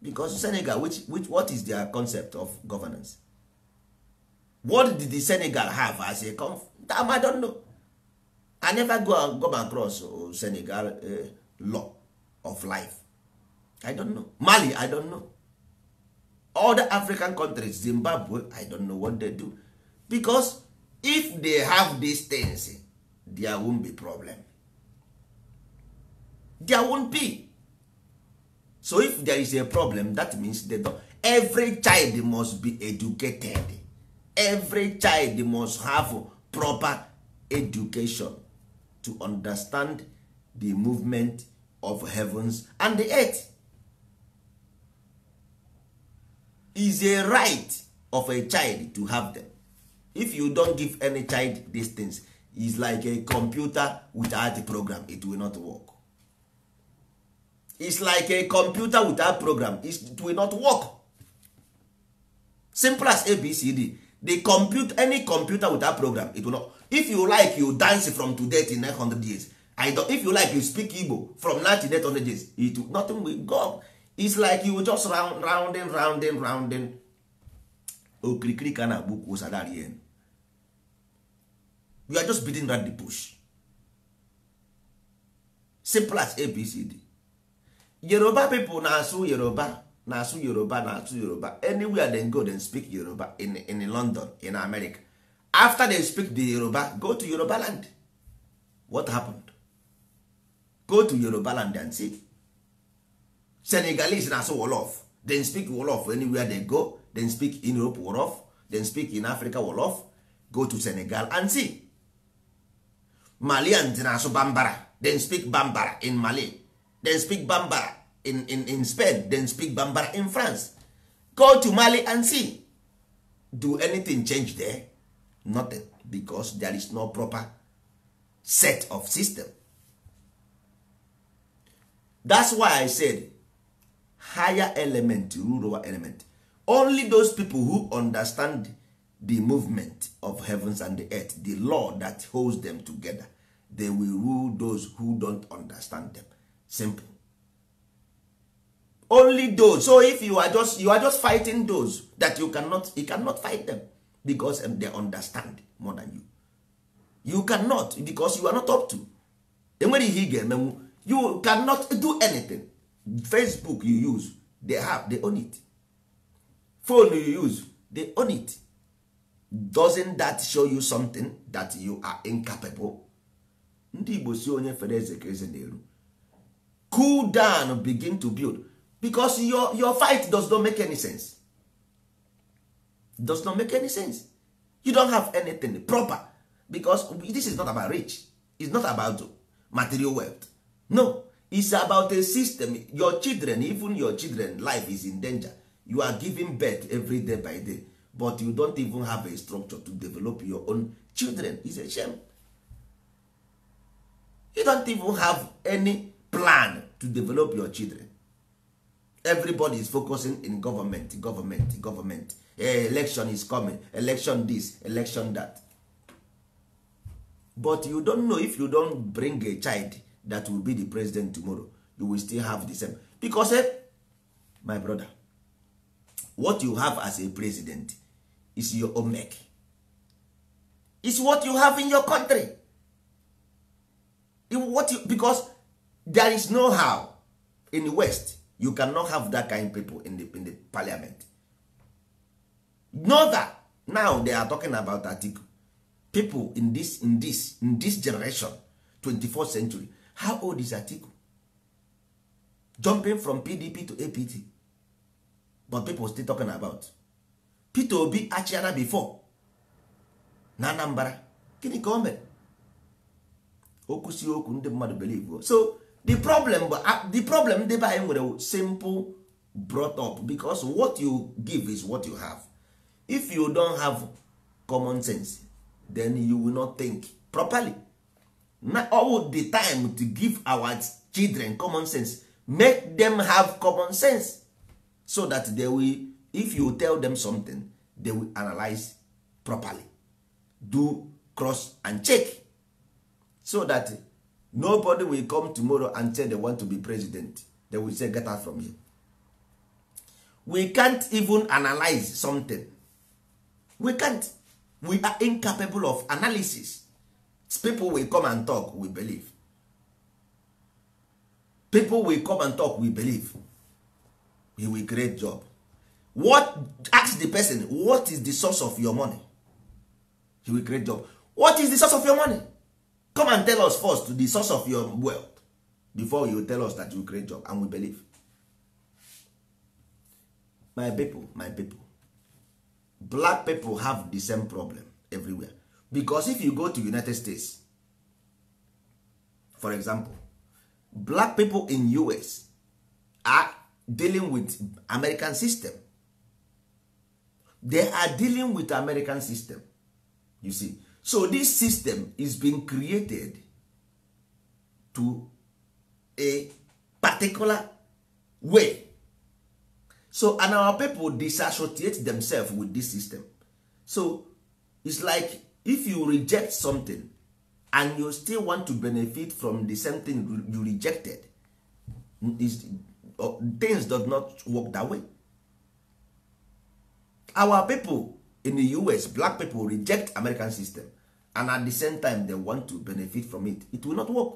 because senegal which, which what is their concept of governance what did the senegal have as a conf i don't know i never go come across oh, senegal uh, law of life i don't know mali i don't know all the african countries zimbabwe i don't know what they do because if they have these things there won't be problem there won't be so if there is a problem that means they don't. every child must be educated every child must have proper education to understand the movement of heavens and the earth is a right of a child to have them if you don't give any child these things is like a computer without a program it will not work It's like a computer without program it will not work simple as abcd the compute any computer with that program it will not if you like you dance from today to 900 years I don't, if you like you speak igbo from now to 900 years it will, nothing will go It's like you just round rounding rounding rounding okirikiri ka na-agbu kwuo sadari yen you are just beating that the bush simple as abcd yoruba people na-asụ yoruba na-asụ yoruba na-asụ yoruba anywhere they go they speak yoruba in, in london in america after they speak the yoruba go to yoruba land what happened go to yoruba land and see senegalese na-asụ wolof they speak wolof anywhere they go they speak in europe wolof they speak in africa wolof go to senegal and see malians na-asụ bambara they speak bambara in mali they speak bambara in, in, in spain then speak bambara in france go to mali and see do anything change there nothing because there is no proper set of system that's why i said higher element rule over element only those people who understand the movement of heavens and the earth the law that holds them together they will rule those who don't understand them simple only those so if you are just you are just fighting those that you cannot you cannot fight them because they understand more than you you cannot because you are not up to enwere ihe ị ga-emenwu you cannot do anything facebook you use they have they own it phone you use they own it doesn't that show you something that you are incapable ndị igbo si onye fere eze ka eze na-eru cool down begin to build because your, your fight does not make any sense does not make any sense you don't have anything proper because this is not about rich it's not about material wealth no it's about a system your children even your children life is in danger you are giving birth every day by day but you don't even have a structure to develop your own children It's a shame you don't even have any plan to develop your children everybody is focusing in government government government eh, election is coming election this election that but you don't know if you don't bring a child that will be the president tomorrow you will still have the same because eh, my brother what you have as a president is your own make is what you have in your country what you, because there is no how in the west you cannot have that kind of people in the, in the parliament know that now they are talking about article people in this in this in this generation 24th century how old is atiku jumping from pdp to apt but people still talking about peter obi achiana before na anambra gịnị ka o mere okwu si okwu ndị mmadụ believe so the problem uh, the problem debe anyị nwere simple brought up because what you give is what you have if you don't have common sense then you will not think properly now all the time to give our children common sense make them have common sense so that they will if you tell them something they will analyze properly do cross and check so that nobody will come tomorrow and say they want to be president they will say get out from here we can't even analyze something we can't we are incapable of analysis people will come and talk we believe people will come and talk we believe we will create job what ask the person what is the source of your money he will create job what is the source of your money come and tell us first the source of your wealth before you tell us that you create job and we believe my people my people black people have the same problem everywhere because if you go to united states for example black people in us are dealing with american system they are dealing with american system you see so this system is being created to a particular way so and our people disassociate themselves with this system so it's like if you reject something and you still want to benefit from the same thing you rejected uh, things does not work that way our people in the us black people reject american system and at the same time they want to benefit from it it will not work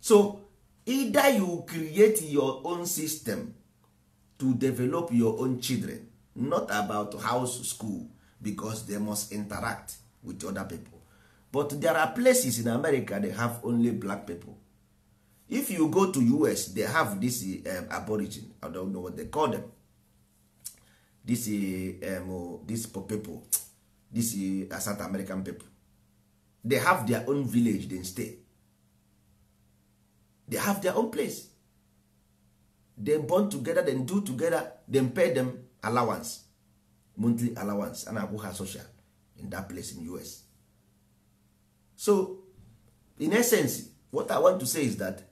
so either you create your own system to develop your own children not about house school because they must interact with other people but there are places in america they have only black people if you go to us they have this um, aborigine i don't know what they call them this um, oh, this people this uh, south american people they have their own village they stay they have their own place they bond together Then do together Then pay them allowance monthly allowance and na ha social in that place in us so in essence what i want to say is that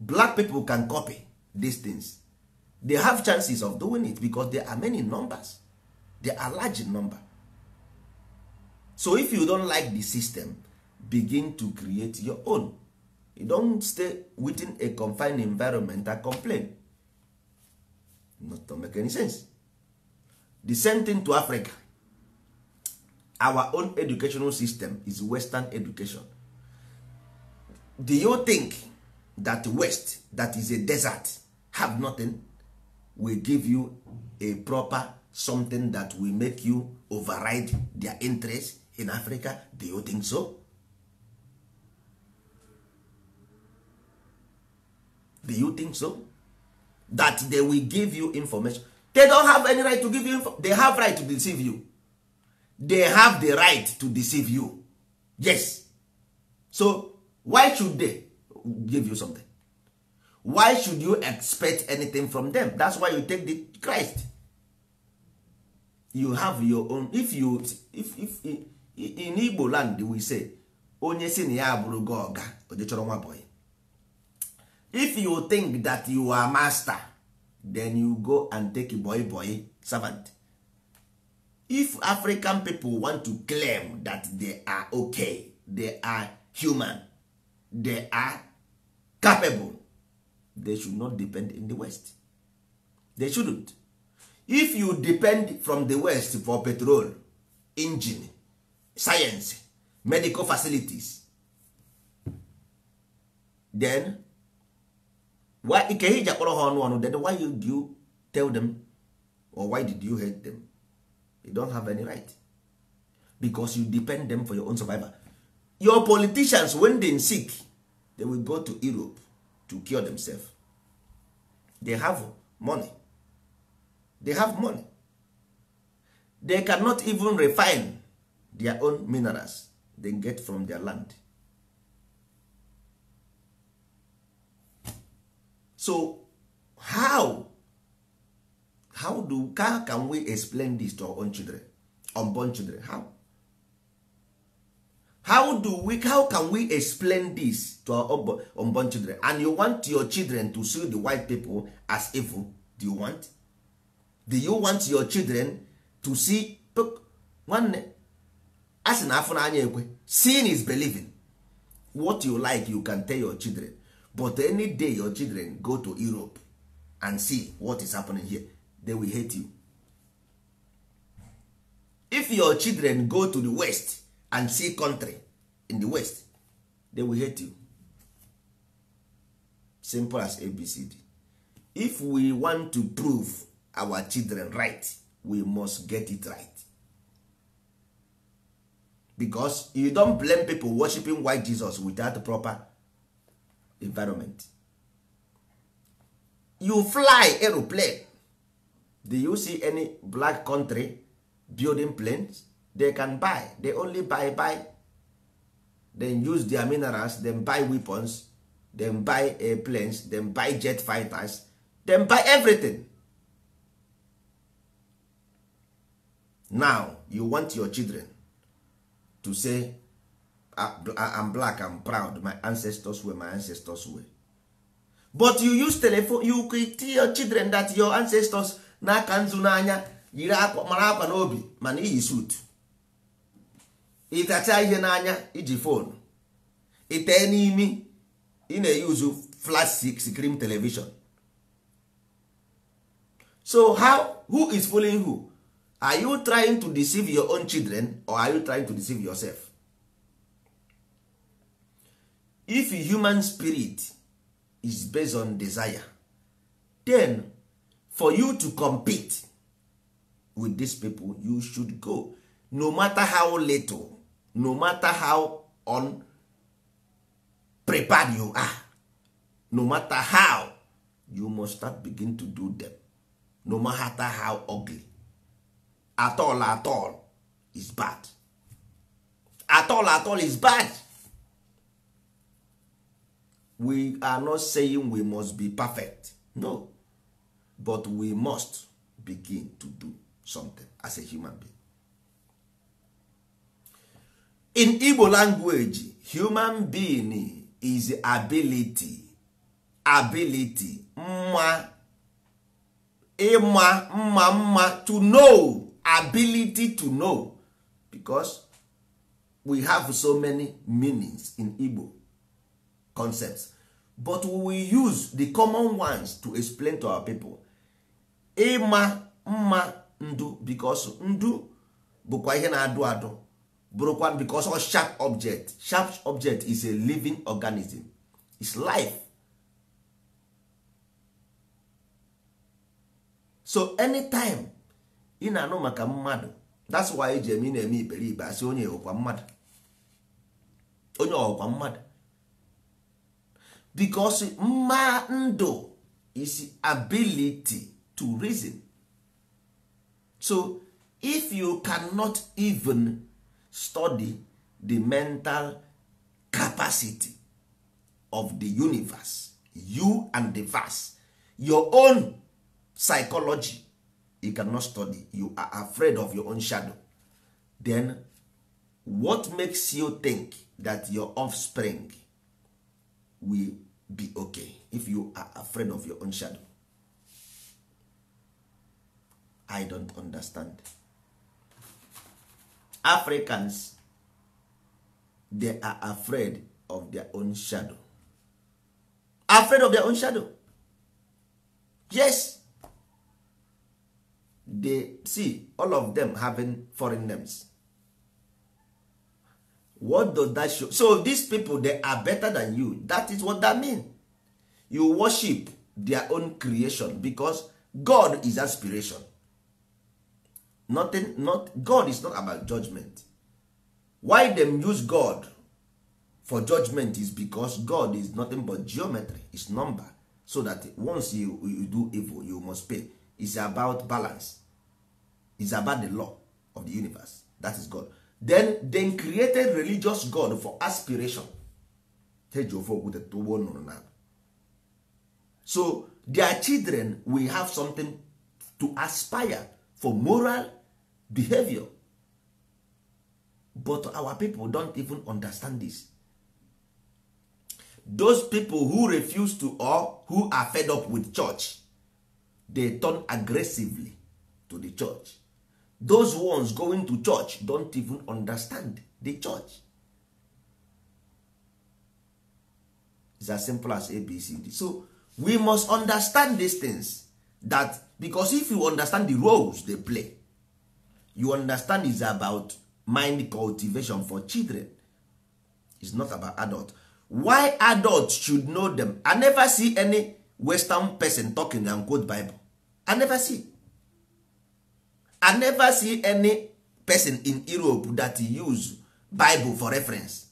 black people can copy these things they have chances of doing it because there are many numbers they are large in number so if you don't like the system begin to create your own you don't stay within a confined environment and complain not to make any sense the same thing to africa our own educational system is western education do you think that west that is a desert have nothing will give you a proper something that will make you override their interest in africa do you think so do you think so that they will give you information they don't have any right to give you they have right to deceive you they have the right to deceive you yes so why should they give you something why should you expect anything from them that's why you take the christ you have your own if you if, if in igbo land we say onye si na ya bụrụ gị ọga nwa boy if you think that you are master then you go and take a boy boy servant if african people want to claim that they are okay they are human they are capable they should not depend in the west they shouldn't if you depend from the west for petrol engine science medical facilities then why ike ha ọnụ ọnụ then why did you tell them or why did you hate them they don't have any right because you depend them for your own survival your politicians when they sick they will go to europe to cure themselves they have money they have money they cannot even refine their own minerals they get from their land so how how do how can we explain this to our own children unborn children how how do we how can we explain this to our unborn children and you want your children to see the white people as evil do you want do you want your children to see nwanne a sị na afọ n'anya ekwe seeing is believing what you like you can tell your children but any day your children go to europe and see what is happening here they will hate you if your children go to the west and see country in the west they will hate you simple as abcd if we want to prove our children right we must get it right because you don't blame people worshiping white jesus without proper environment you fly aeroplane do you see any black country building planes they can buy they only buy buy then use their minerals then buy weapons then buy airplanes then buy jet fighters then buy everything now you want your children to say i'm black i'm proud my ancestors were my ancestors were but you use telephone you tell your children that your ancestors na aka nzu n'anya yiri mara akwa n'obi mana iyi suit ịtacha ihe n'anya iji fonu itee n'imi ị na-eyuzu flash screen television so how who is fooling who are you trying to deceive your own children or are you trying to deceive yourself if human spirit is based on desire then for you to compete with these people you should go no matter how little no matter how unprepared you are no matter how you must start begin to do them no matter how ugly at all at all is bad at all at all is bad we are not saying we must be perfect no but we must begin to do something as a human being in igbo language human being is ability ability mma ịma mma mma to know ability to know because we have so many meanings in igbo concepts but we will use the common ones to explain to our people ịma mma ndu because ndu bụkwa ihe na-adụ adụ brokwan because a sharp object sharp object is a living organism is life so anytime ị na-anụ maka mmadụ that's why eji eme ị na-eme iberibe asị onye ọkwa mmadụ onye ọkwa mmadụ because mma ndụ is ability to reason so if you cannot even study the mental capacity of the universe you and the verse your own psychology you cannot study you are afraid of your own shadow then what makes you think that your offspring will be okay if you are afraid of your own shadow i don't understand africans they are afraid of their own shadow afraid of their own shadow yes they see all of them having foreign names what does that show so these people they are better than you that is what that mean you worship their own creation because god is aspiration nothing not god is not about judgment why them use god for judgment is because god is nothing but geometry is number so that once you, you do evil you must pay It's about balance It's about the law of the universe that is god then then created religious god for aspiration so their children will have something to aspire for moral behavior but our people don't even understand this those people who refuse to or who are fed up with church they turn aggressively to the church those ones going to church don't even understand the church It's as simple as abcd so we must understand these things that because if you understand the roles they play you understand is about mind cultivation for children It's not about adult why adults should know them i never see any western person talking and quote bible i never see i never see any person in europe that use bible for reference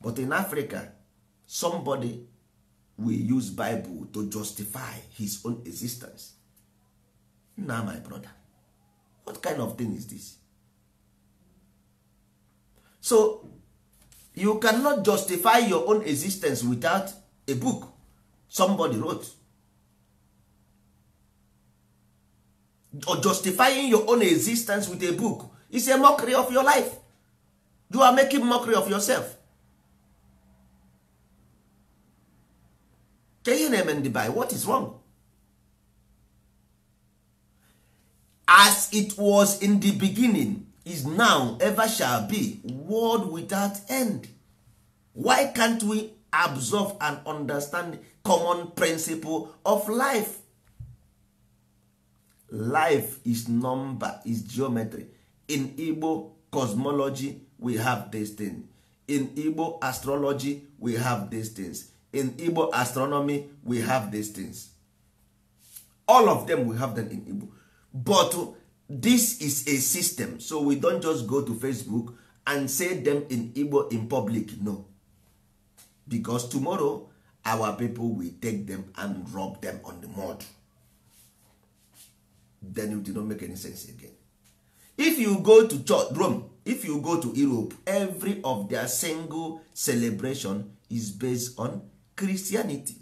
but in africa somebody will use bible to justify his own existence now my brother what kind of thing is this so you cannot justify your own existence without a book somebody wrote or justifying your own existence with a book is a mockery of your life you are making mockery of yourself ke ihe na-eme ndị by what is wrong as it was in the beginning is now ever shall be world without end why can't we absorb and understand common principle of life life is number is geometry in igbo cosmology we have these things in igbo astrology we have these things in igbo astronomy we have these things all of them we have them in igbo but this is a system so we don't just go to facebook and say them in igbo in public no because tomorrow our people will take them and rob them on the mud then it will not make any sense again if you go to church, rome if you go to europe every of their single celebration is based on christianity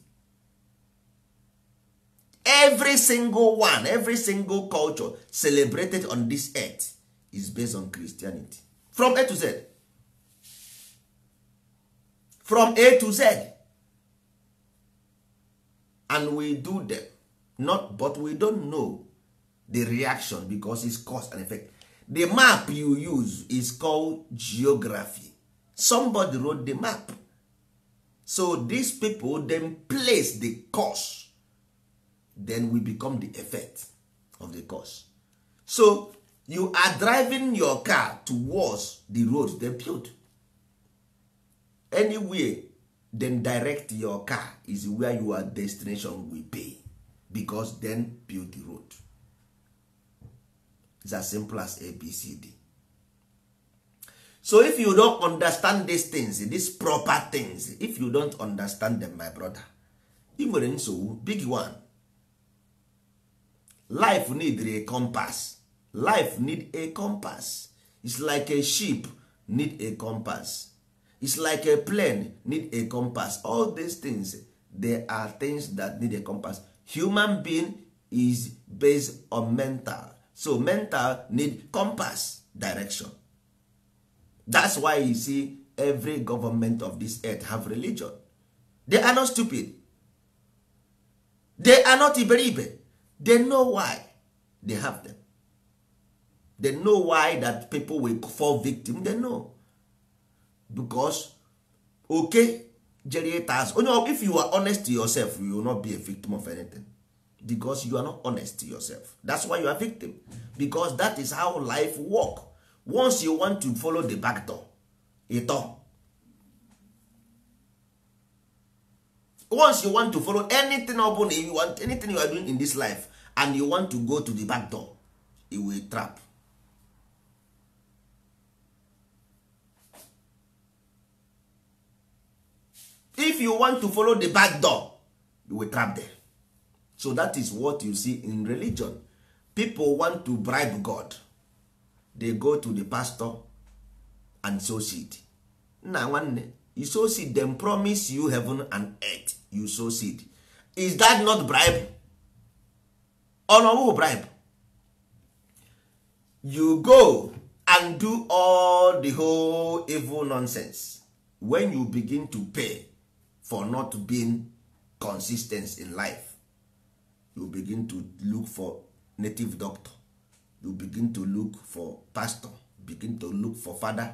every single one every single culture celebrated on this earth is based on christianity from a to z from a to z and we do them not but we don't know the reaction because it's cause and effect the map you use is called geography somebody wrote the map so these people then place the cause then we become the effect of the cause so you are driving your car towards the road they built anywhere then direct your car is where your destination will be because then build the road It's as simple as abcd so if you don't understand these things these proper things if you don't understand them my brother ị nwere nsogbu big one life need a compass life need a compass It's like a ship need a compass It's like a plane need a compass all these things they are things that need a compass human being is based on mental so mental need compass direction that's why you see every government of this earth have religion they are not stupid they are not iberibe they know why they have them they know why that people will fall victim they know because okay generators onye oh if you are honest to yourself you will not be a victim of anything because you are not honest to yourself that's why you are victim because that is how life work once you want to follow the back door ịtọ once you want to follow anything upon you want anything you are doing in this life and you want to go to the back door you will trap if you want to follow the back door you will trap there. so that is what you see in religion people want to bribe god they go to the pastor and so seed nna nwanne you so seed them promise you heaven and earth you sow seed is that not bribe who bribe you go and do all the whole evil nonsense when you begin to pay for not being consistent in life you begin to look for native doctor you begin to look for pastor begin to look for father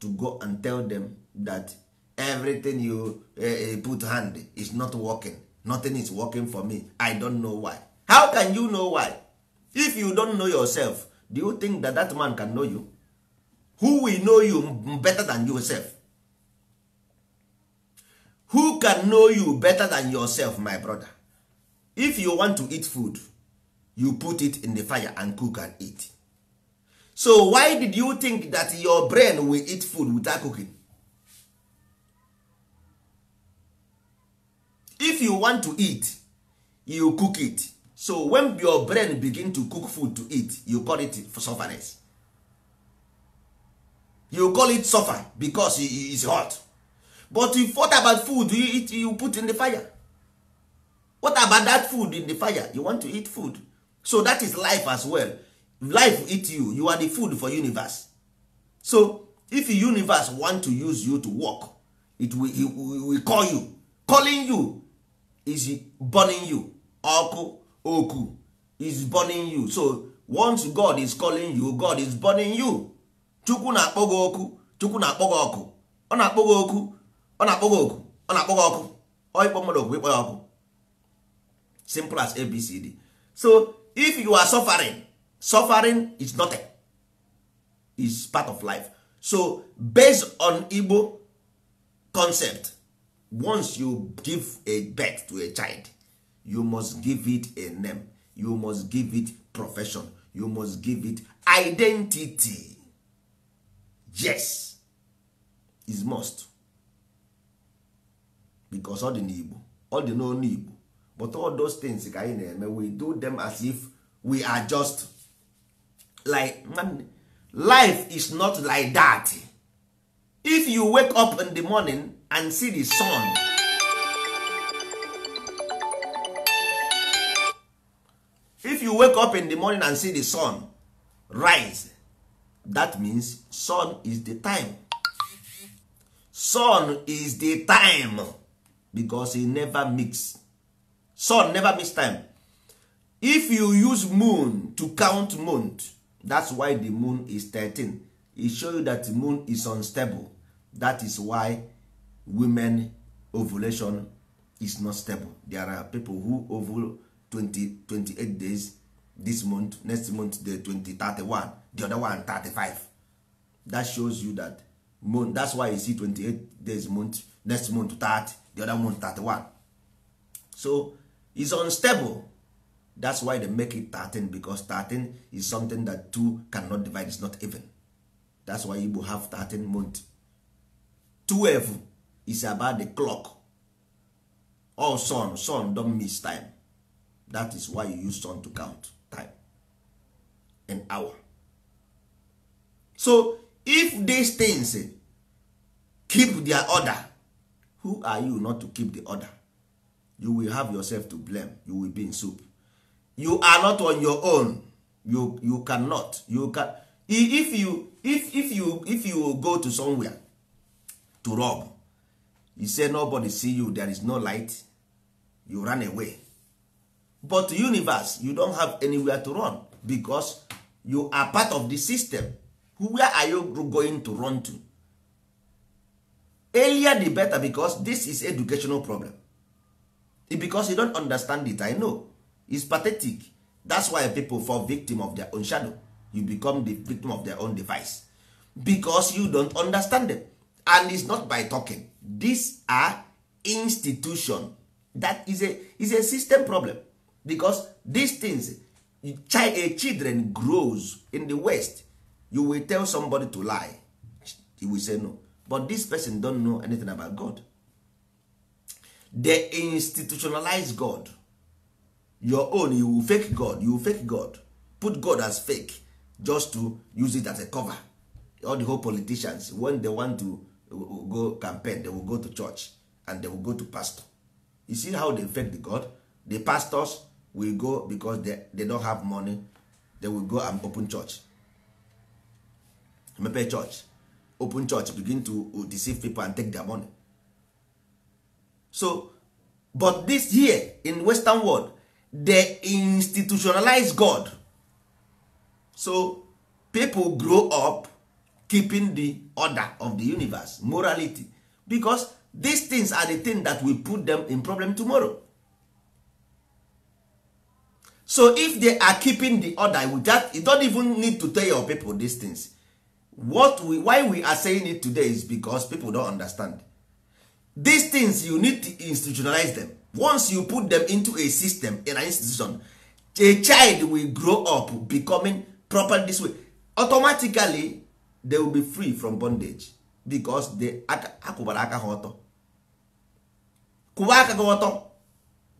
to go and tell them that everything you uh, put hand is not working nothing is working for me i don't know why how can you know why if you don't know yourself do you think that that man can know you who will know you better than yourself who can know you better than yourself my brother if you want to eat food you put it in the fire and cook and eat so why did you think that your brain will eat food without cooking if you want to eat you cook it so when your brain begin to cook food to eat you call it for sufferness you call it suffer because it is hot but you thought about food you eat you put in the fire what about that food in the fire you want to eat food so that is life as well life eat you you are the food for universe so if universe want to use you to work it will, it will call you calling you is burning you ọkụ oku is burning you so once god is calling you god is burning you chukwu na-akpọ gị oku chukwu na-akpọ gị ọkụ ọ na-akpọ gị oku ọ na-akpọ gị oku ọ na-akpọ gị ọkụ ọịkpọ mmadụ okwu ịkpọ ya ọkụ simple as abcd so if you are suffering suffering is nothing is part of life so based on igbo concept once you give a birth to a child you must give it a name you must give it profession you must give it identity yes is must because all the n'igbo all the n'onu igbo but all those things ka anyị na-eme we do them as if we are just like life is not like that if you wake up in the morning and see the sun if you wake up in the morning and see the sun rise that means sun is the time sun is the time because e never mix sun never mix time if you use moon to count moon, that's why the moon is 13 e show you that the moon is unstable that is why women ovulation is not stable there are people who ovul 28 days this month next month the 20 31 the other one 35 that shows you that month that's why you see 28 days month next month 30 the other month 31 so is unstable that's why they make it 13 because 13 is something that two cannot divide is not even that's why Igbo have 13 month 12 is about the clock all oh, sun sun don miss time that is why you use sun to count time an hour so if these things keep their order who are you not to keep the order you will have yourself to blame you will be in soup you are not on your own you you cannot you can if you if if you if you go to somewhere to rob you say nobody see you there is no light you run away but universe you don't have anywhere to run because you are part of the system where are you going to run to earlier the better because this is educational problem because you don't understand it i know It's pathetic that's why people fall victim of their own shadow you become the victim of their own device because you don't understand them and it's not by talking these are institution that is a is a system problem because these things a children grows in the west you will tell somebody to lie he will say no but this person don't know anything about god they institutionalize god your own you will fake god you will fake god put god as fake just to use it as a cover all the whole politicians when they want to will go campaign they will go to church and they will go to pastor you see how they fake the god the pastors will go because they, they don't have money they will go and open church mepe church open church begin to uh, deceive people and take their money so but this here in western world they institutionalize god so people grow up keeping the order of the universe morality because these things are the thing that will put them in problem tomorrow so if they are keeping the order with that you don't even need to tell your people these things what we, why we are saying it today is because people don't understand these things you need to institutionalize them once you put them into a system in an institution a child will grow up becoming proper this way automatically they will be free from bondage because they akwụbara aka ha ọtọ kwụba aka ọtọ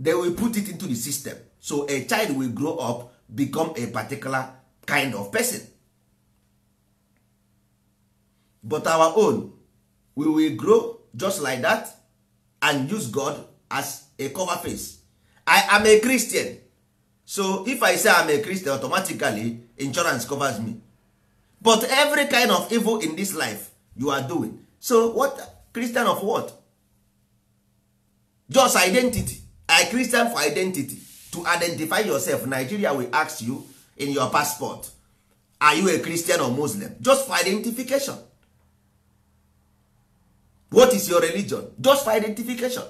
they will put it into the system so a child will grow up become a particular kind of person but our own we will grow just like that and use god as a cover face i am a christian so if i say i'm a christian automatically insurance covers me but every kind of evil in this life you are doing so what christian of what just identity a christian for identity to identify yourself nigeria will ask you in your passport are you a christian or muslim just for identification what is your religion just for identification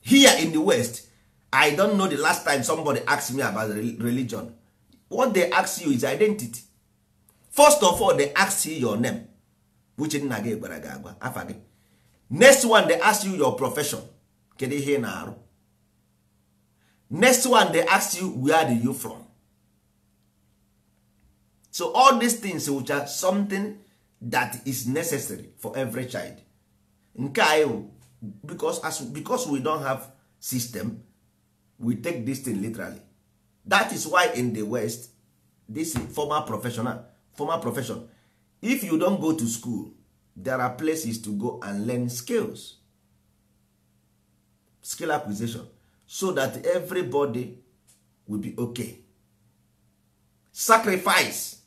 here in the west i don't know the last time somebody asked me about religion what they ask you is identity first of all they ask you your name which nna gị gwara gị agwa afa gị next one they ask you your profession kedu ihe ị na-arụ next one they ask you where do you from so all these things which are something that is necessary for every child nke anyị because, as, because we don't have system we take this thing literally that is why in the west this former professional former profession if you don't go to school there are places to go and learn skills skill acquisition so that everybody will be okay sacrifice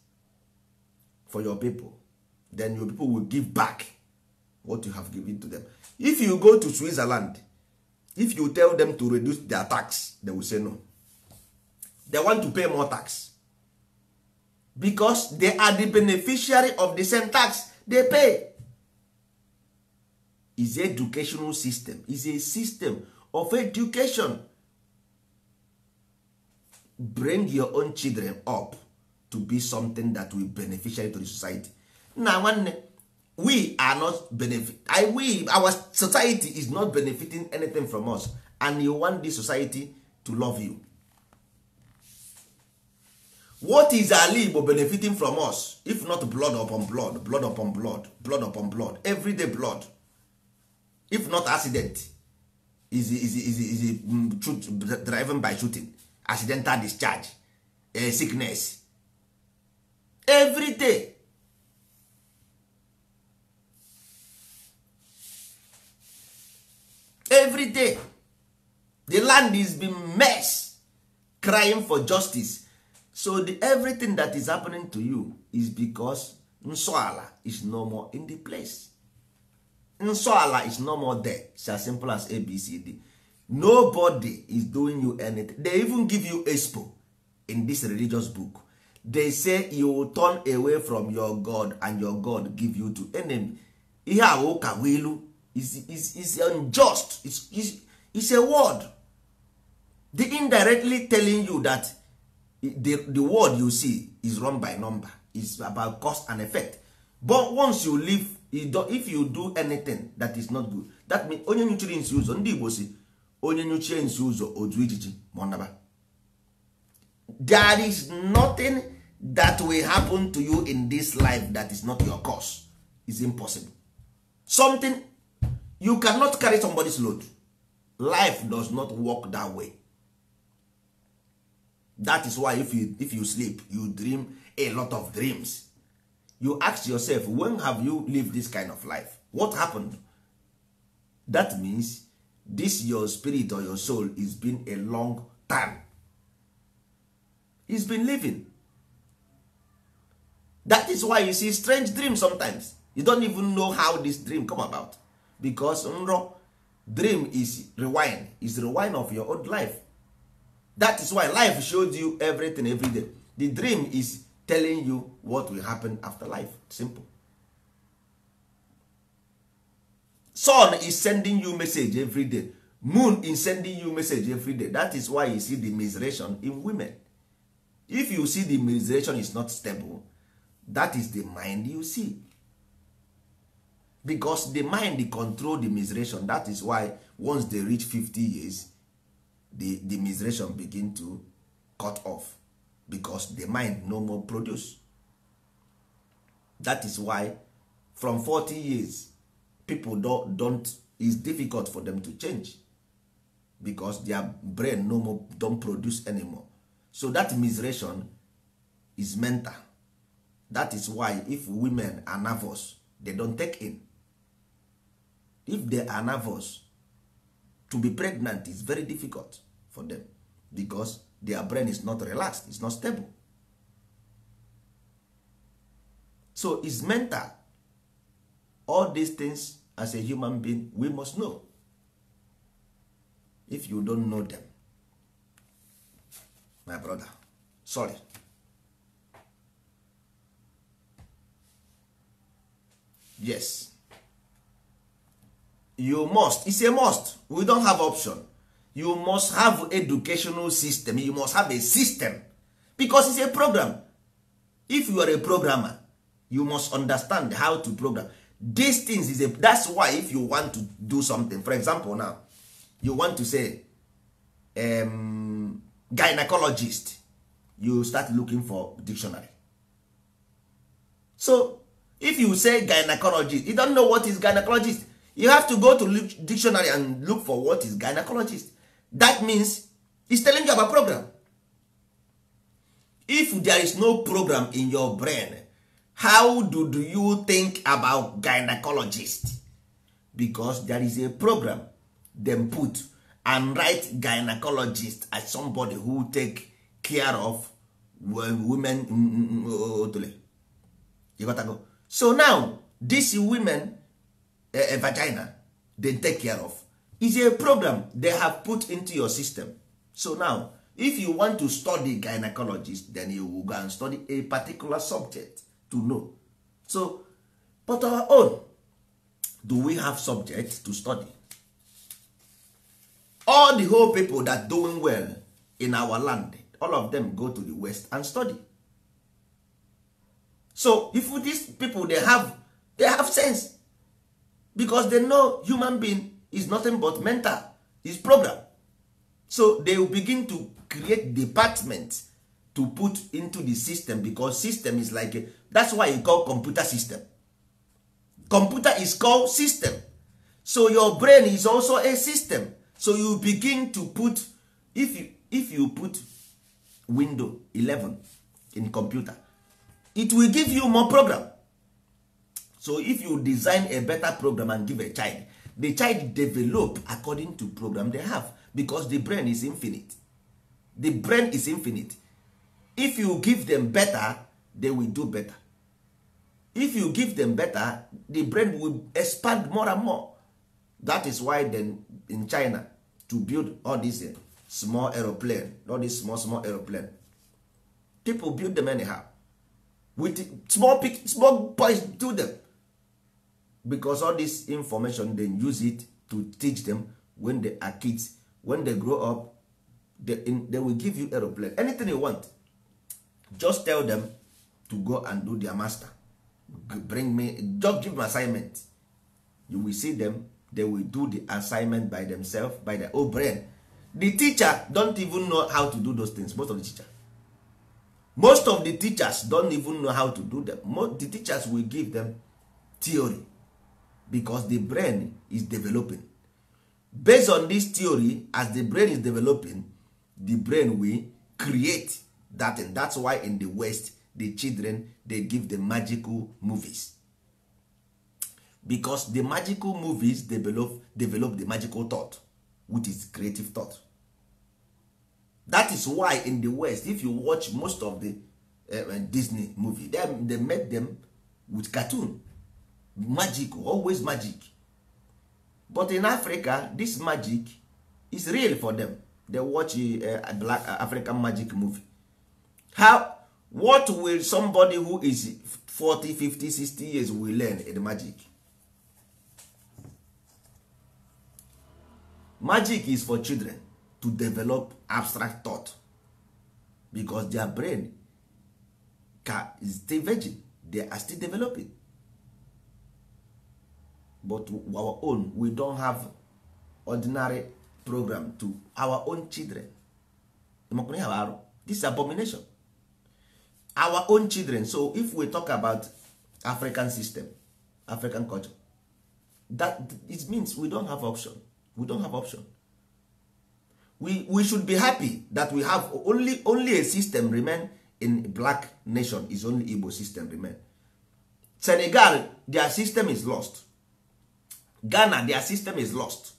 for your people then your people will give back what you have given to them if you go to switzerland if you tell them to reduce their tax they will say no they want to pay more tax because they are the beneficiary of the same tax they pay is educational system is a system of education bring your own children up to be something that will beneficiary to the society na nwanne we are not benefit I, we our society is not benefiting anything from us and you want this society to love you what is Ali igbo benefiting from us if not blood upon blood blood upon blood blood upon blood everyday blood if not accident is is is is mm, truth, driven by shooting accidental discharge uh, sickness every day every day the land is been mess crying for justice so the everything that is happening to you is because nsọala is no more in the place nsọala is no more there it's as simple as abcd nobody is doing you anything they even give you expo in this religious book they say you will turn away from your god and your god give you to enemy ihe a ụka wilu is, is, is unjust is, is, is a word the indirectly telling you that the, the word you see is run by number It's about cause and effect but once you leave you do, if you do anything that is not good that means onye nutrients nsi ụzọ ndị igbo si onye nyuchie nsi ụzọ otu ijiji ma there is nothing that will happen to you in this life that is not your cause is impossible something you cannot carry somebody's load life does not work that way that is why if you, if you sleep you dream a lot of dreams you ask yourself when have you lived this kind of life what happened that means this your spirit or your soul is been a long time it has been living that is why you see strange dreams sometimes you don't even know how this dream come about because nro dream is rewind is rewind of your old life that is why life shows you everything every day the dream is telling you what will happen after life simple sun is sending you message every day moon is sending you message every day that is why you see the miseration in women if you see the miseration is not stable that is the mind you see because the mind control the miseration that is why once they reach 50 years the the miseration begin to cut off because the mind no more produce that is why from 40 years people don't, don't is difficult for them to change because their brain no more don't produce anymore so that miseration is mental that is why if women are nervous they don't take in if they are nervous to be pregnant is very difficult for them because their brain is not relaxed it's not stable so is mental all these things as a human being we must know if you don't know them my brother sorry yes you must it's a must we don't have option you must have educational system you must have a system because it's a program if you are a programmer you must understand how to program these things is a that's why if you want to do something for example now you want to say um, gynecologist you start looking for dictionary so if you say gynecologist you don't know what is gynecologist you have to go to dictionary and look for what is gynecologist that means it's telling you about program if there is no program in your brain how do, do you think about gynecologist because there is a program them put and write gynecologist as somebody who take care of women mm, mm, mm, oh, oh, oh, you got to go. so now these women a eh, eh, vagina they take care of is a problem they have put into your system so now if you want to study gynecologist then you will go and study a particular subject to know so but our own do we have subjects to study all the whole people that doing well in our land all of them go to the west and study so if these people they have they have sense because they know human being is nothing but mental is program so they will begin to create department to put into the system because system is like a, that's why you call computer system computer is called system so your brain is also a system so you begin to put if you, if you put window 11 in computer it will give you more program so if you design a better program and give a child the child develop according to program they have because the brain is infinite the brain is infinite if you give them better they will do better if you give them better the brain will expand more and more that is why then in china to build all these uh, small aeroplane all these small small aeroplane people build them anyhow with small small boys do them because all this information they use it to teach them when they are kids when they grow up they, in, they will give you aeroplane anything you want just tell them to go and do their master bring me just give them assignment you will see them they will do the assignment by themselves by their own brain the teacher don't even know how to do those things most of the teacher most of the teachers don't even know how to do them most, the teachers will give them theory because the brain is developing based on this theory as the brain is developing the brain will create that and that's why in the west the children they give the magical movies because the magical movies develop develop the magical thought which is creative thought that is why in the west if you watch most of the uh, disney movie them they make them with cartoon magic always magic but in africa this magic is real for them they watch uh, a black uh, african magic movie how what will somebody who is 40 50 60 years will learn in magic magic is for children to develop abstract thought because their brain is still virgin they are still developing but our own we don't have ordinary program to our own children this abomination our own children so if we talk about african system african culture that it means we don't have option we don't have option we, we should be happy that we have only only a system remain in black nation is only igbo system remain senegal their system is lost ghana their system is lost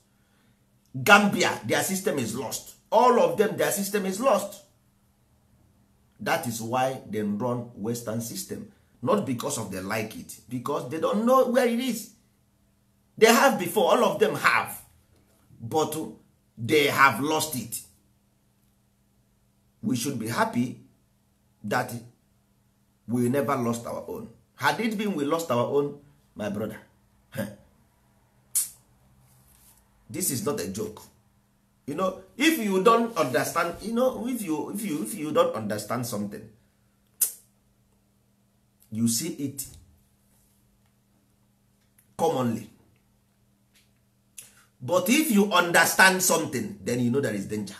gambia their system is lost all of them their system is lost that is why them run western system not because of they like it because they don't know where it is they have before all of them have but they have lost it we should be happy that we never lost our own had it been we lost our own my brother this is not a joke you know if you don understand you know if you if you if you understand something you see it commonly but if you understand something then you know there is danger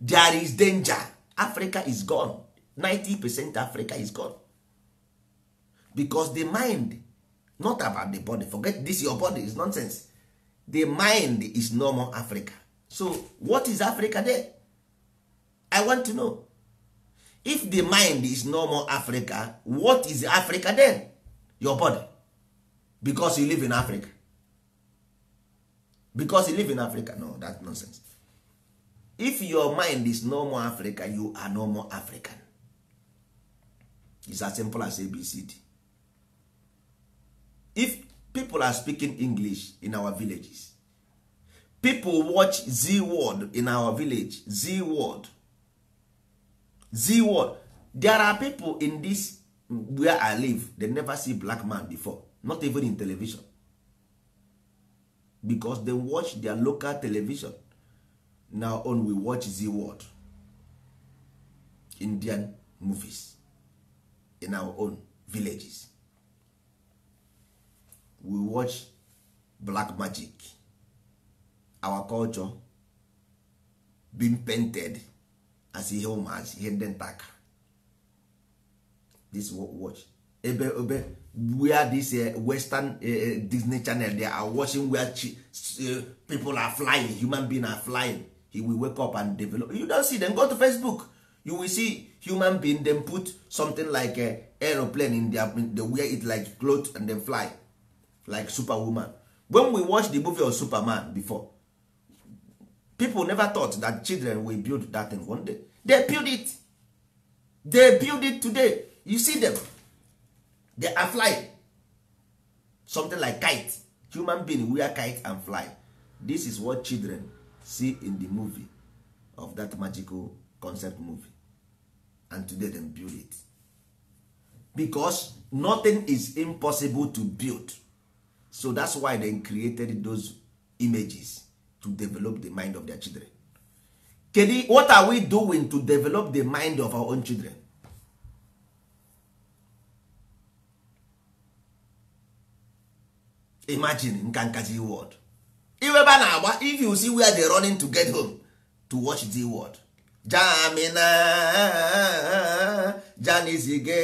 there is danger africa is gone 90 percent africa is gone because the mind not about the body forget this your body is nonsense the mind is no more africa so what is africa there i want to know if the mind is no more africa what is africa then your body because you live in africa because you live in africa no that nonsense if your mind is no more africa you are no more african It's as simple as abcd if people are speaking english in our villages people watch z word in our village z word z word there are people in this where i live they never see black man before not even in television because they watch their local television now on we watch z word indian movies in our own villages we watch black magic our culture being painted as ihe ụmụazị ihe ndị ntaka this we watch ebe ebe where this uh, western uh, uh, disney channel they are watching where people are flying human being are flying he will wake up and develop you don't see them go to facebook you will see human being then put something like a aeroplane in their they wear it like cloth and then fly like superwoman when we watch the movie of superman before people never thought that children will build that thing one day they build it they build it today you see them they are flying something like kite human being wear kite and fly this is what children see in the movie of that magical concept movie and today them build it because nothing is impossible to build so that's why they created those images to develop the mind of their children kedu what are we doing to develop the mind of our own children imagine nka nkazi word na-agba if you see where they running to get home to watch the word jamina janizige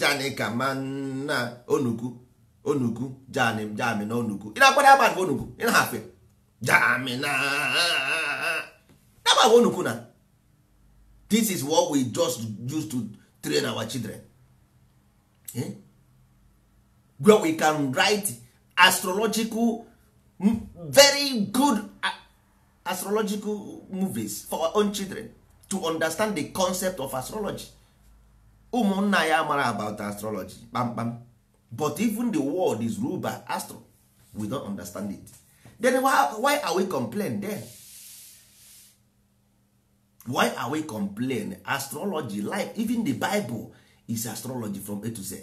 janikamanna onuku onugu janim jami na onugu ị na-akpara ya agba onugu ị na-afịa jami na agba onugu na this is what we just use to train our children eh? where we can write astrological very good astrological movies for our own children to understand the concept of astrology ụmụnna ya mara about astrology kpamkpam but even the world is ruled by astro we don't understand it then why, why are we complain then why are we complain astrology like even the bible is astrology from a to z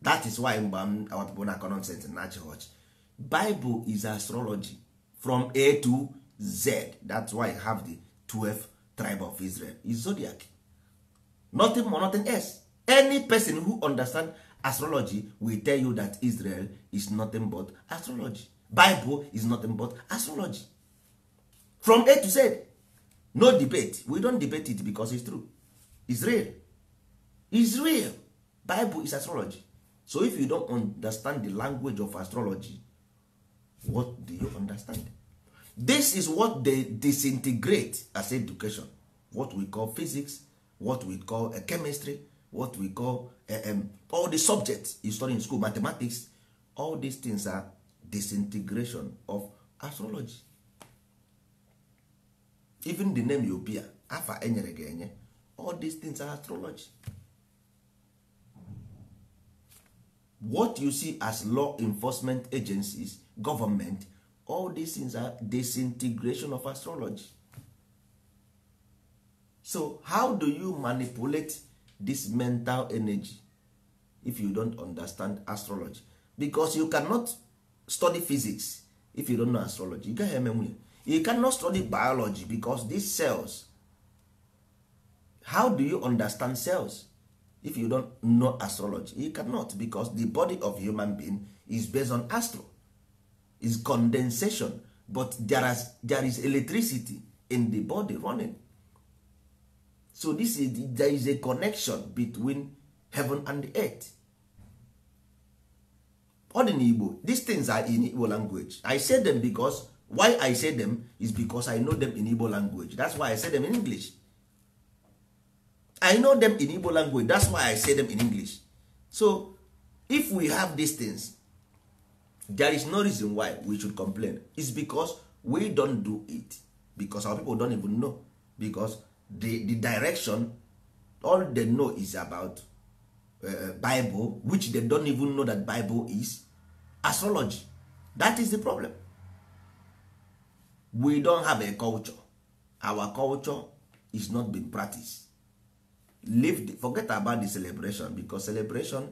that is why mgbe our people na nonsense in na church bible is astrology from a to z that's why i have the 12th tribe of israel is zodiac nothing more nothing else any person who understand astrology will tell you that israel is nothing but astrology bible is nothing but astrology from a to z no debate we don't debate it because it's true israel israel bible is astrology so if you don't understand the language of astrology what do you understand this is what they disintegrate as education what we call physics what we call chemistry what we call um, all the subjects you study in school mathematics all these things are disintegration of astrology even the name you appear afa enyere gị enye all these things are astrology what you see as law enforcement agencies government all these things are disintegration of astrology so how do you manipulate this mental energy if you don't understand astrology because you cannot study physics if you don't know astrology you gaghị eme nwunye you cannot study biology because these cells how do you understand cells if you don't know astrology you cannot because the body of human being is based on astro is condensation but there is, there is electricity in the body running so this is there is a connection between heaven and the earth ọ dị n'igbo these things are in igbo language i say them because why i say them is because i know them in igbo language that's why i say them in english i know them in igbo language that's why i say them in english so if we have these things there is no reason why we should complain It's because we don't do it because our people don't even know because the, the direction all they know is about uh, bible which they don't even know that bible is astrology that is the problem we don't have a culture our culture is not being practiced leave the, forget about the celebration because celebration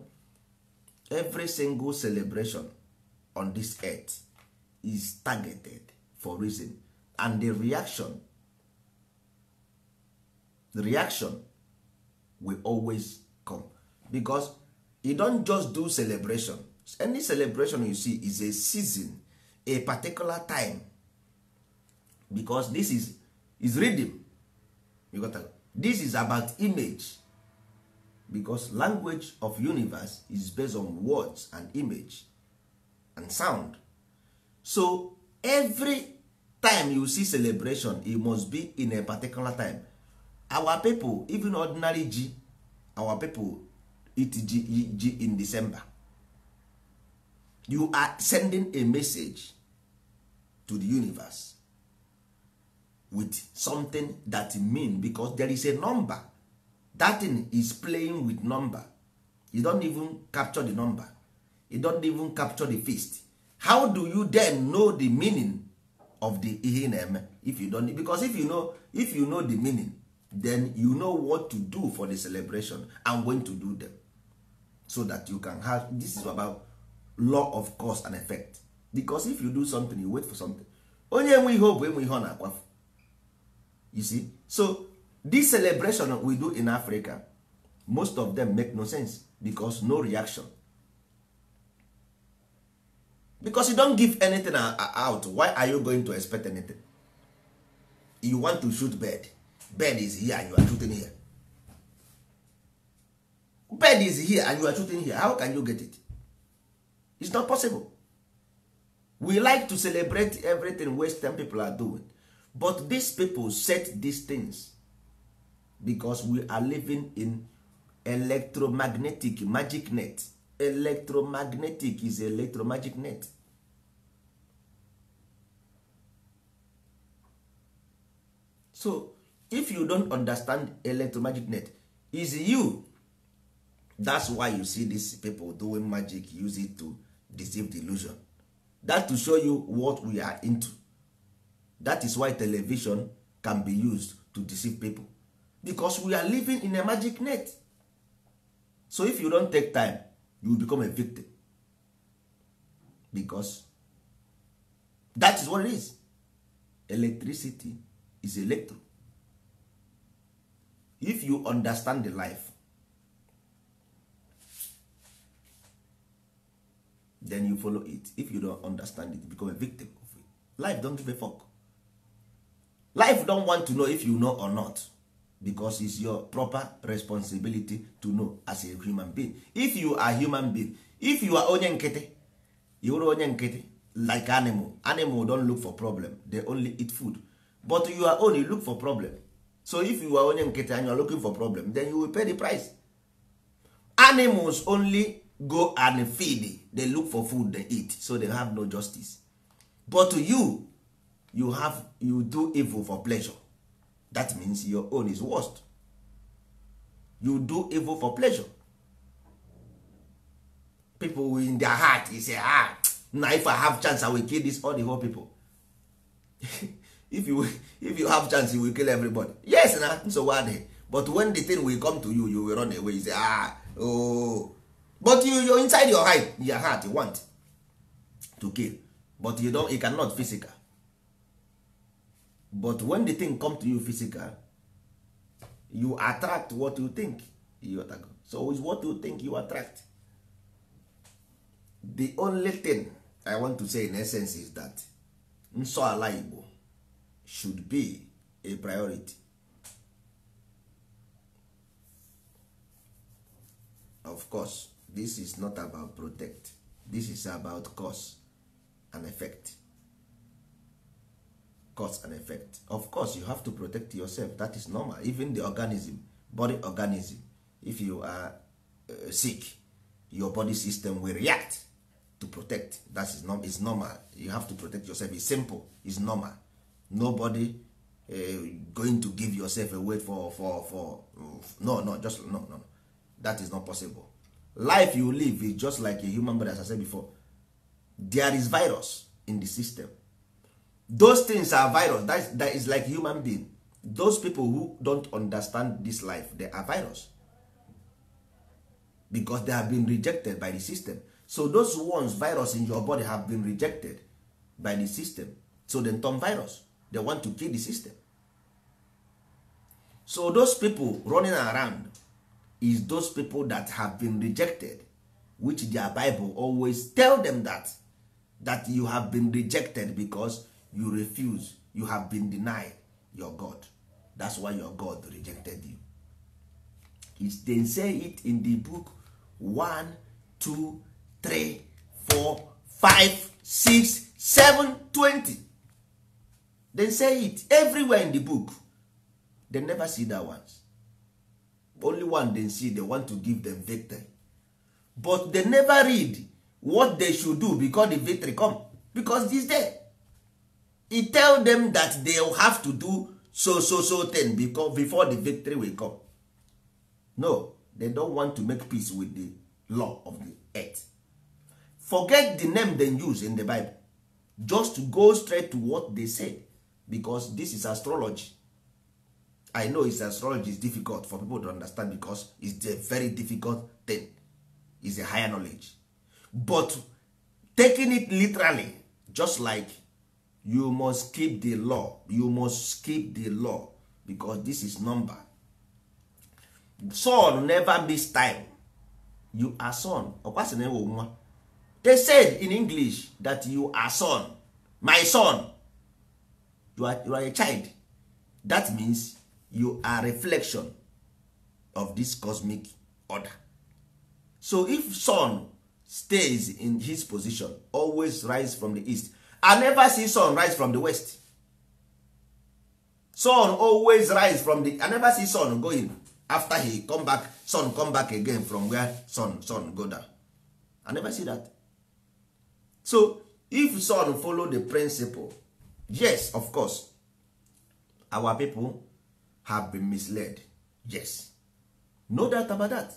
every single celebration on this earth is targeted for reason and the reaction the reaction will always come because you don't just do celebration any celebration you see is a season a particular time because this is is rhythm you got to, this is about image because language of universe is based on words and image and sound so every time you see celebration it must be in a particular time our people even ordinary G, our people eat G G in december you are sending a message to the universe with something that mean because there is a number that thing is playing with number you don't even capture the number you don't even capture the feast how do you then know the meaning of the ihe na-eme if you don't because if you know if you know the meaning then you know what to do for the celebration and when to do them so that you can have this is about law of cause and effect because if you do something you wait for something onye enwe ihe bụ enwe ihe ọ na-akwafu you see so this celebration we do in africa most of them make no sense because no reaction because you don't give anything out why are you going to expect anything you want to shoot bed bed is here and you are shooting here bed is here and you are shooting here how can you get it it's not possible we like to celebrate everything western people are doing but these people set these things because we are living in electromagnetic magic net electromagnetic is electromagnetic net so if you don't understand net, is you that's why you see these people doing magic use it to deceive the illusion that to show you what we are into that is why television can be used to deceive people because we are living in a magic net so if you don't take time you become a victim because that is what it is electricity is electro if you understand the life then you follow it if you don't understand it you become a victim of it life don't give a fuck life don't want to know if you know or not because it's your proper responsibility to know as a human being if you are human being if you are onye nkịtị you are onye nkịtị like animal animal don't look for problem they only eat food but you are only look for problem so if you are onye nkịtị and you are looking for problem then you will pay the price animals only go and feed they look for food they eat so they have no justice but to you you have you do evil for pleasure that means your own is worst you do evil for pleasure people in their heart is say ah now if i have chance i will kill this all the whole people if you if you have chance you will kill everybody yes na nsogbu adịghị but when the thing will come to you you will run away you say ah oh but you you inside your heart your heart you want to kill but you don't you cannot physical but when the thing come to you physical you attract what you think you attract. so is what you think you attract the only thing i want to say in essence is that nsọ ala igbo should be a priority of course this is not about protect this is about cause and effect cause and effect of course you have to protect yourself that is normal even the organism body organism if you are uh, sick your body system will react to protect that is normal. It's normal you have to protect yourself It's simple It's normal nobody uh, going to give yourself away for for for no no just no no that is not possible life you live is just like a human body as i said before there is virus in the system those things are virus that is, that is like human being those people who don't understand this life they are virus because they have been rejected by the system so those ones virus in your body have been rejected by the system so then turn virus they want to kill the system so those people running around is those people that have been rejected which their bible always tell them that that you have been rejected because you refuse you have been denied your god that's why your god rejected you it's, they say it in the book one two three four five six seven twenty they say it everywhere in the book. They never see that ones. Only one they see they want to give them victory. But they never read what they should do because the victory come. Because this day, He tell them that they have to do so so so ten because before the victory will come. No, they don't want to make peace with the law of the earth. Forget the name they use in the Bible. Just go straight to what they said because this is astrology i know is astrology is difficult for people to understand because it's a very difficult thing is a higher knowledge but taking it literally just like you must keep the law you must keep the law because this is number son never miss time you are son ọkwasị na ewo nwa they said in english that you are son my son you are, you are a child that means you are reflection of this cosmic order so if sun stays in his position always rise from the east i never see sun rise from the west sun always rise from the i never see sun going after he come back sun come back again from where sun sun go down i never see that so if sun follow the principle yes of course our people have been misled yes no doubt about that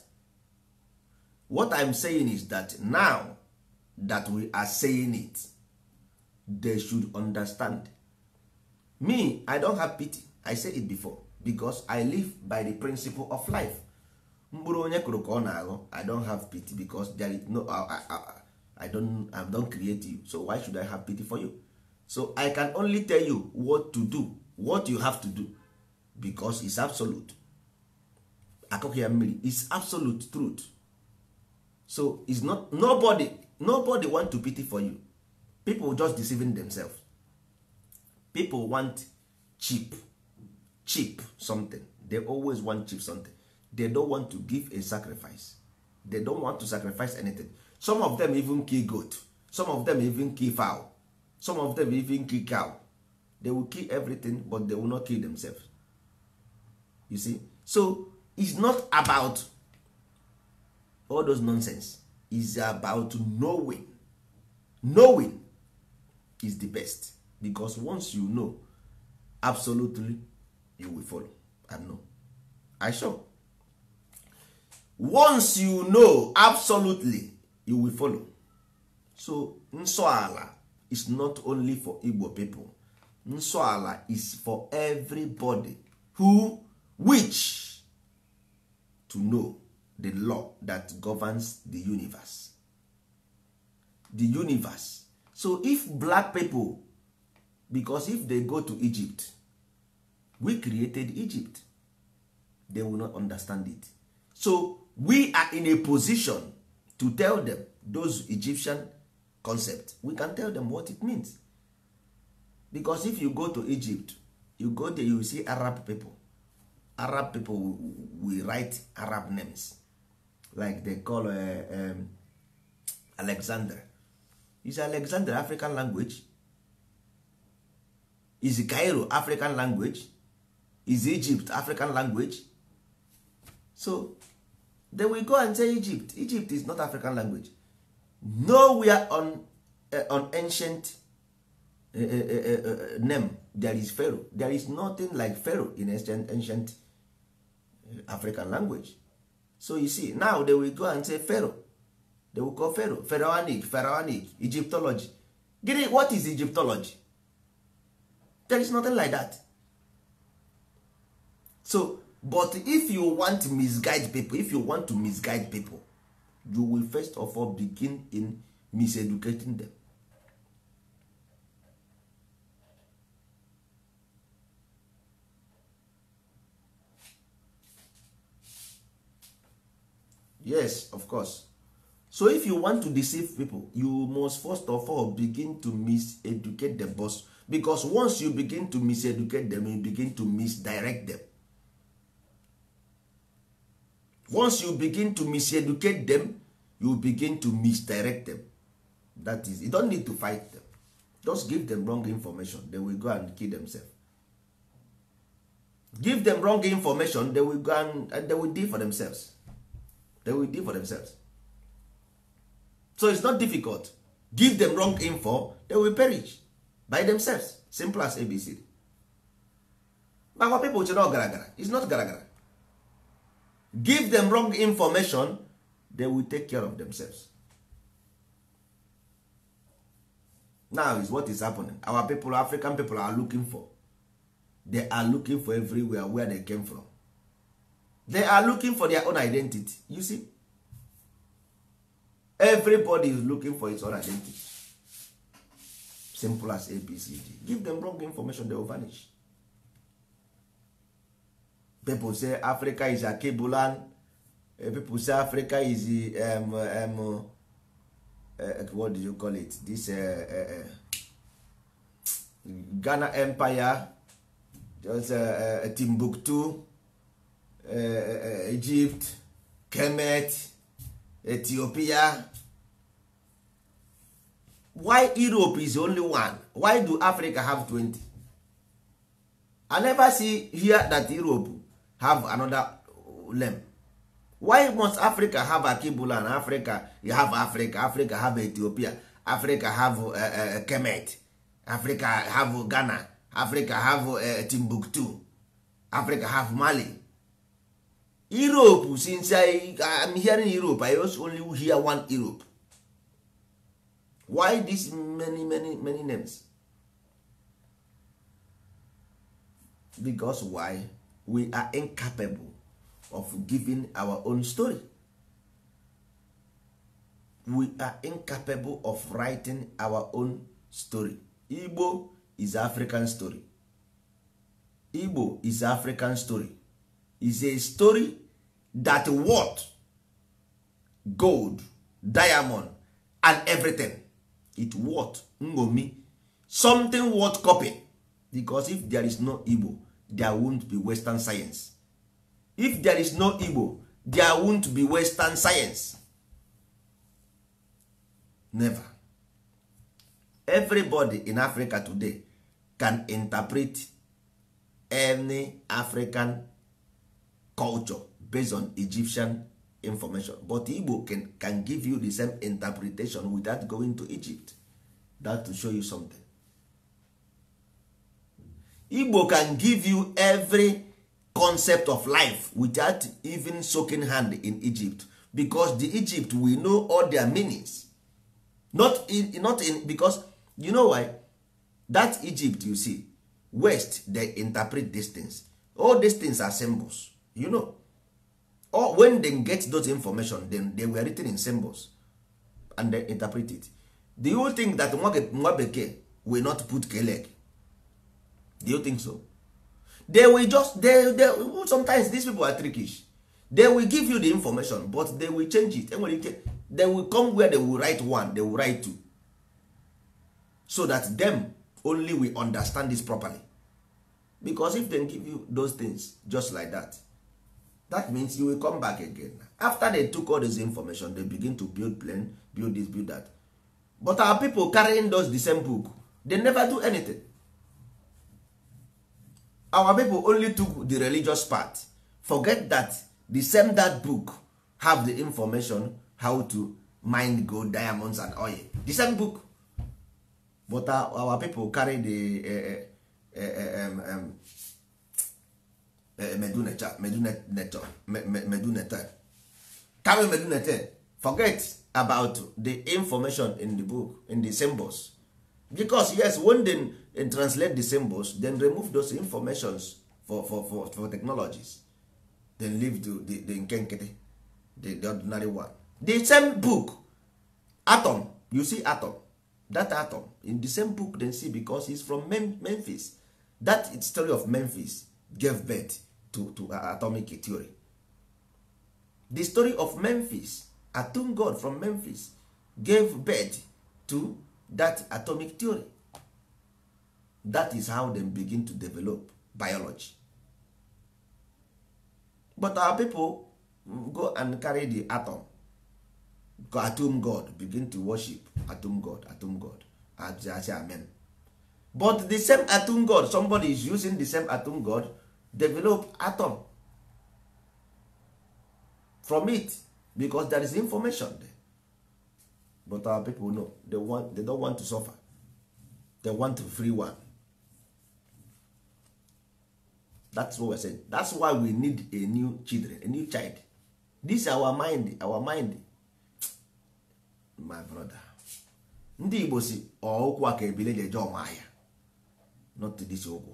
what i'm saying is that now that we are saying it they should understand me i don't have pity i say it before because i live by the principle of life mkpụrụ onye kụrụ ka ọ na-aghọ i don't have pity because there is no I, I, I, don't, I don't create you so why should i have pity for you so i can only tell you what to do what you have to do because it's absolute akụkọ ya mmiri is absolute truth so it's not nobody nobody want to pity for you people just deceiving themselves people want cheap cheap something they always want cheap something they don't want to give a sacrifice they don't want to sacrifice anything some of them even kill goat some of them even kill fowl some of them even kill cow they will kill everything but they will not kill themselves you see so it's not about all those nonsense It's about knowing knowing is the best because once you know absolutely you will follow and know i sure once you know absolutely you will follow so nsọ ala is not only for igbo people nsọ ala is for everybody who wish to know the law that governs the universe the universe so if black people because if they go to egypt we created egypt they will not understand it so we are in a position to tell them those egyptian concept we can tell them what it means because if you go to egypt you go there you see arab people arab people will write arab names like they call uh, um, alexander is alexander african language is cairo african language is egypt african language so then we go and say egypt egypt is not african language nowhere on, uh, on ancient uh, uh, name there is pharaoh there is nothing like pharaoh in ancient, ancient african language so you see now they will go and say pharaoh they will call pharaoh pharaonic pharaonic egyptology gịnị what is egyptology there is nothing like that so but if you want to misguide people if you want to misguide people you will first of all begin in miseducating them yes of course so if you want to deceive people you must first of all begin to miseducate the boss because once you begin to miseducate them you begin to misdirect them once you begin to miseducate them you begin to misdirect them that is you don't need to fight them just give them wrong information they will go and kill themselves give them wrong information they will go and, and they will deal for themselves they will deal for themselves so it's not difficult give them wrong info they will perish by themselves simple as abc but our people chere ọgaragara It's not garagara give them wrong information they will take care of themselves now is what is happening our people african people are looking for they are looking for everywhere where they came from they are looking for their own identity you see everybody is looking for his own identity simple as abcd give them wrong information they will vanish people say africa is akibulan eh, people say africa is um, um eh, eh, what do you call it this uh, uh, ghana empire just, timbuktu egypt kemet ethiopia why europe is only one why do africa have 20 i never see here that europe have another name. why must africa have akibula and africa you have africa africa have ethiopia africa have uh, uh, uh kemet africa have ghana africa have uh, timbuktu africa have mali europe since i am hearing europe i also only hear one europe why this many many many names because why we are incapable of giving our own story we are incapable of writing our own story igbo is african story igbo is african story is a story that worth gold diamond and everything it worth ngomi something worth copy because if there is no igbo there won't be western science if there is no igbo there won't be western science never everybody in africa today can interpret any african culture based on egyptian information but igbo can, can give you the same interpretation without going to egypt that to show you something igbo can give you every concept of life without even soaking hand in egypt because the egypt we know all their meanings not in, not in because you know why that egypt you see west they interpret these things all these things are symbols you know or when they get those information then they were written in symbols and they interpret it do you think that nwa bekee will not put keleg do you think so they will just they, they, sometimes these people are trickish they will give you the information but they will change it they will come where they will write one they will write two so that them only we understand this properly because if they give you those things just like that that means you will come back again after they took all this information they begin to build plan build this build that but our people carrying those the same book they never do anything our people only took the religious part forget that the same that book have the information how to mine gold diamonds and oil the same book but our, people carry the uh, uh, um, um, carry forget about the information in the book in the symbols because yes one day and translate the symbols then remove those informations for, for, for, for technologies then leave the, the, the the, the ordinary one the same book atom you see atom that atom in the same book then see because he's from Mem memphis that story of memphis gave birth to, to uh, atomic theory the story of memphis atom god from memphis gave birth to that atomic theory that is how them begin to develop biology but our people go and carry the atom atom god begin to worship atom god atom god amen but the same atom god somebody is using the same atom god develop atom from it because there is information there but our people know they, want, they don't want to suffer they want to free one that's what we're saying that's why we need a new children a new child this our mind our mind my brother ndị igbo si ọụkwụ a ka ebile ji ọma ahịa not this ụkwụ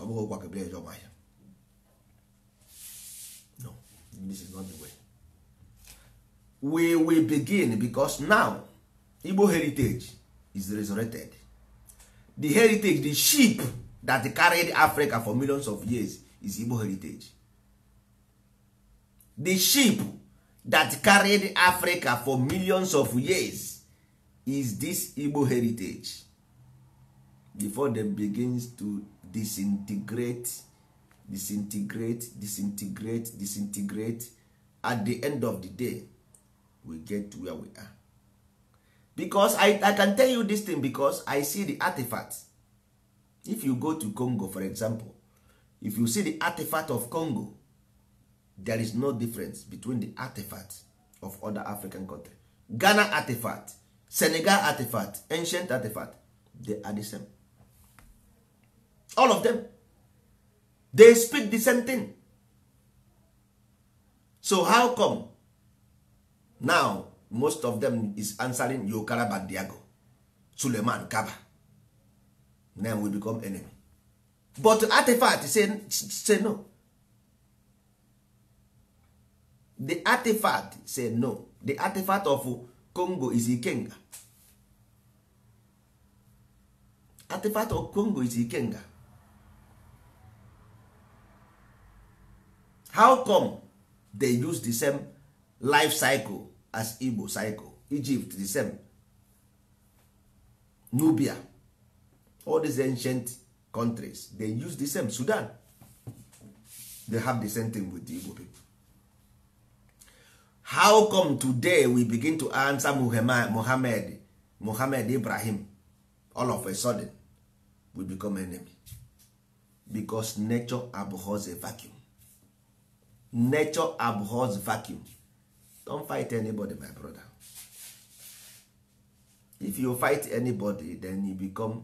ọ bụghị ụkwa ka ebile eje ọma ahịa this is not the way we will begin because now igbo heritage is resurrected the heritage the sheep that carried africa for millions of years is igbo heritage the sheep that carried africa for millions of years is this igbo heritage before them begins to disintegrate disintegrate disintegrate disintegrate at the end of the day we get to where we are because i, I can tell you this thing because i see the artifact if you go to congo for example if you see the artifact of congo there is no difference between the artifact of other african country ghana artifact senegal artifact ancient artifact they are the same all of them they speak the same thing so how come now most of them is answering yokara bandiago suleman kaba then we become enemy but artifact say, say no the artifact say no the artifact of congo is ikenga artifact of congo is ikenga how come they use the same life cycle as igbo cycle egypt the same nubia all these ancient countries they use the same sudan they have the same thing with the igbo people how come today we begin to answer Muhammad, Muhammad ibrahim all of a sudden we become enemy because nature abhors a vacuum nature abhors vacuum don't fight anybody my brother if you fight anybody then you become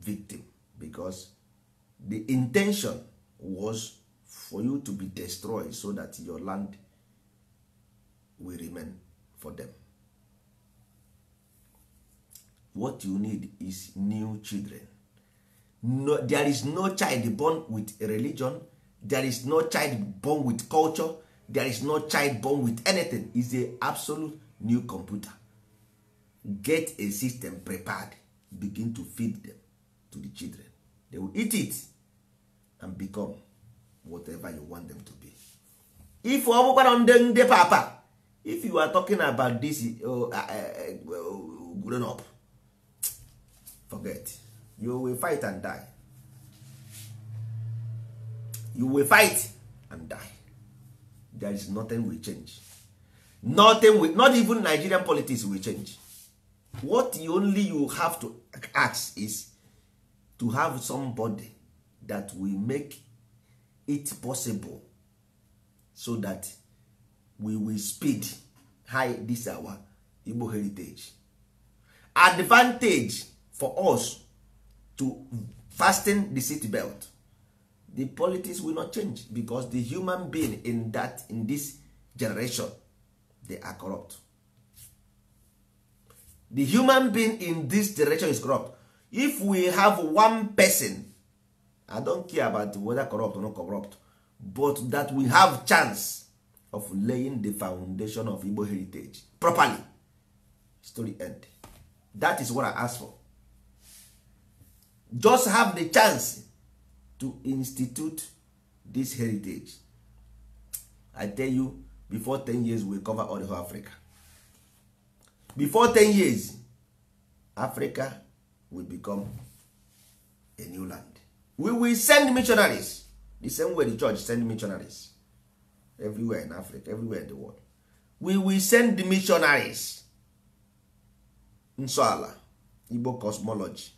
victim because the intention was for you to be destroyed so that your land will remain for them what you need is new children no, there is no child born with a religion there is no child born with culture there is no child born with anything is a absolute new computer get a system prepared begin to feed them to the children they will eat it and become whatever you want them to be if ọ bụkwara papa if you are talking about this uh uh, uh, uh, grown up forget you will fight and die you will fight and die there is nothing will change nothing will, not even nigerian politics will change what you only you have to ask is to have somebody that will make it possible so that we will speed high this our igbo heritage advantage for us to fasten the seat belt the politics will not change because the human being in that in this generation they are corrupt the human being in this generation is corrupt if we have one person i don't care about whether corrupt or not corrupt but that we have chance of laying the foundation of igbo heritage properly story end that is what i ask for just have the chance to institute this heritage i tell you before 10 years we cover all the whole africa before 10 years africa will become a new land we will send missionaries the same way the church send missionaries everywhere in africa everywhere in the world we will send the missionaries nsọala igbo cosmology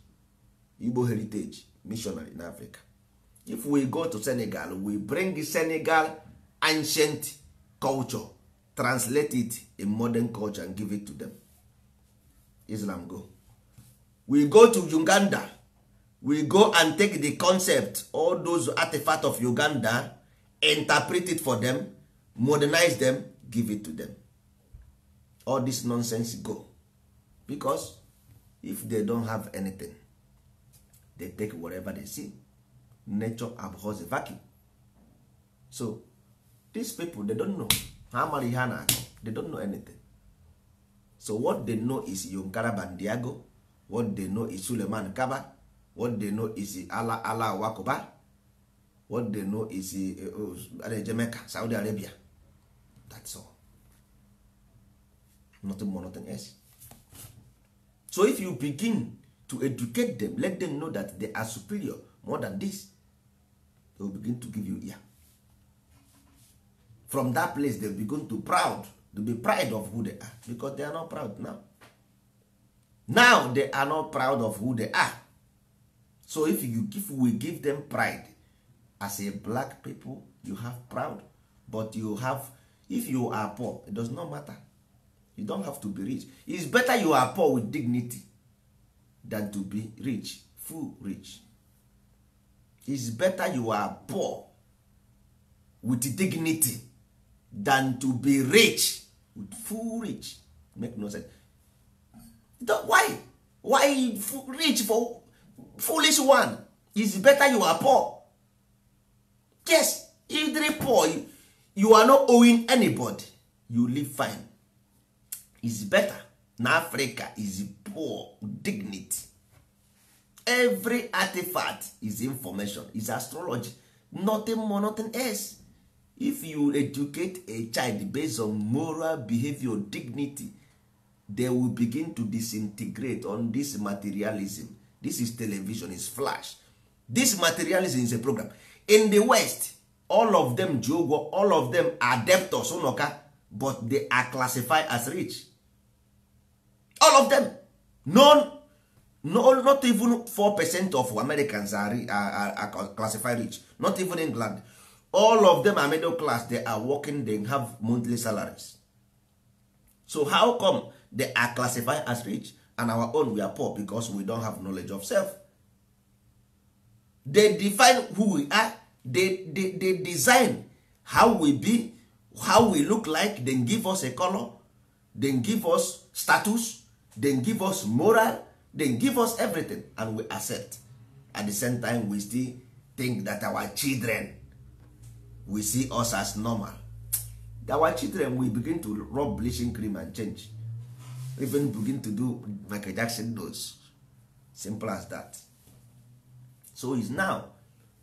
igbo heritage missionary in africa if we go to senegal we bring senegal ancient culture translate it in modern culture and give it to them islam go we go to uganda we go and take the concept all those artifacts of uganda interpret it for them modernize them give it to them all this nonsense go because if they don't have anything they take whatever they see nature abhors vacuum so these people they don't know ha mara ihe a na-akọ they don't know anything so what they know is yonkara bandiago what they know is suleman kaba what they know is ala ala wakoba what they know is eh, oh, jamaica saudi arabia that's all nothing more nothing else so if you begin to educate them let them know that they are superior more than this they will begin to give you ear from that place they begin to proud to be proud of who they are because they are not proud now now they are not proud of who they are so if you give, we give them pride as a black people you have proud but you have if you are poor it does not matter you don't have to be rich It's better you are poor with dignity than to be rich full rich is better you are poor with dignity than to be rich with full rich make no sense why why rich for foolish one is better you are poor yes either poor you are not owing anybody you live fine is better na africa is poor dignity every artifact is information is astrology nothing more nothing else if you educate a child based on moral behavior dignity they will begin to disintegrate on this materialism this is television is flash this materialism is a program in the west all of them jogo all of them are debtors unoka but they are classified as rich all of them none no, not even 4% of americans are, are, are classified rich not even england all of them are middle class they are working they have monthly salaries so how come they are classified as rich and our own we are poor because we don't have knowledge of self they define who we are they, they, they design how we be how we look like then give us a color then give us status then give us moral they give us everything and we accept at the same time we still think that our children we see us as normal our children we begin to rub bleaching cream and change even begin to do michael jackson does simple as that so is now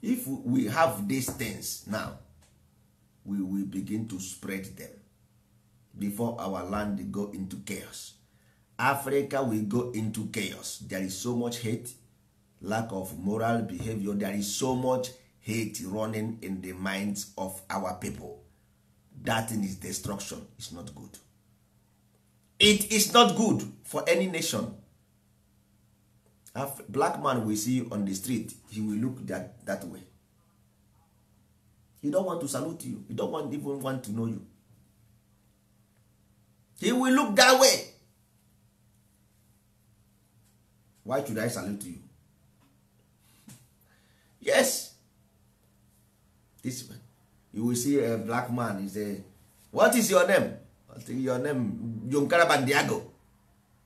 if we have these things now we will begin to spread them before our land go into chaos africa will go into chaos there is so much hate lack of moral behavior there is so much hate running in the minds of our people that thing is destruction It's not good it is not good for any nation Af black man will see you on the street he will look that, that way he don't want to salute you he don't want, even want to know you he will look that way why should i salute you yes this man you will see a black man is a what is your name your name john Diago.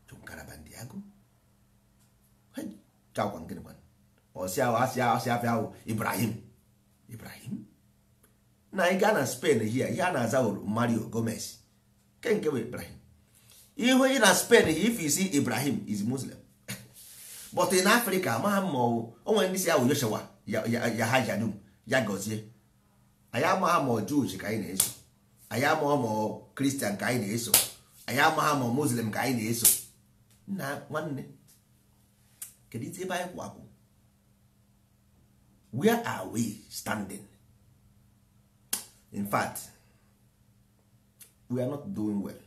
john carabandiago chakwa nkịrị kwana ọsị ahụ asị ahụ asị afịa ahụ ibrahim ibrahim na ị gaa na spain hia ya na-aza mario gomez kenke bụ ibrahim ihu na spain if you see ibrahim is muslim but in Africa amaghị mma ọwụ onwe ndị si ya Joshua ya ha jadum ya gọzie anyị amaghị ma Jewish ka anyị na-eso anyị amaghị ma Christian ka anyị na-eso anyị amaghị ma Muslim ka anyị na-eso nna nwanne kedu ite ebe anyị kwapụ where are we standing in fact we are not doing well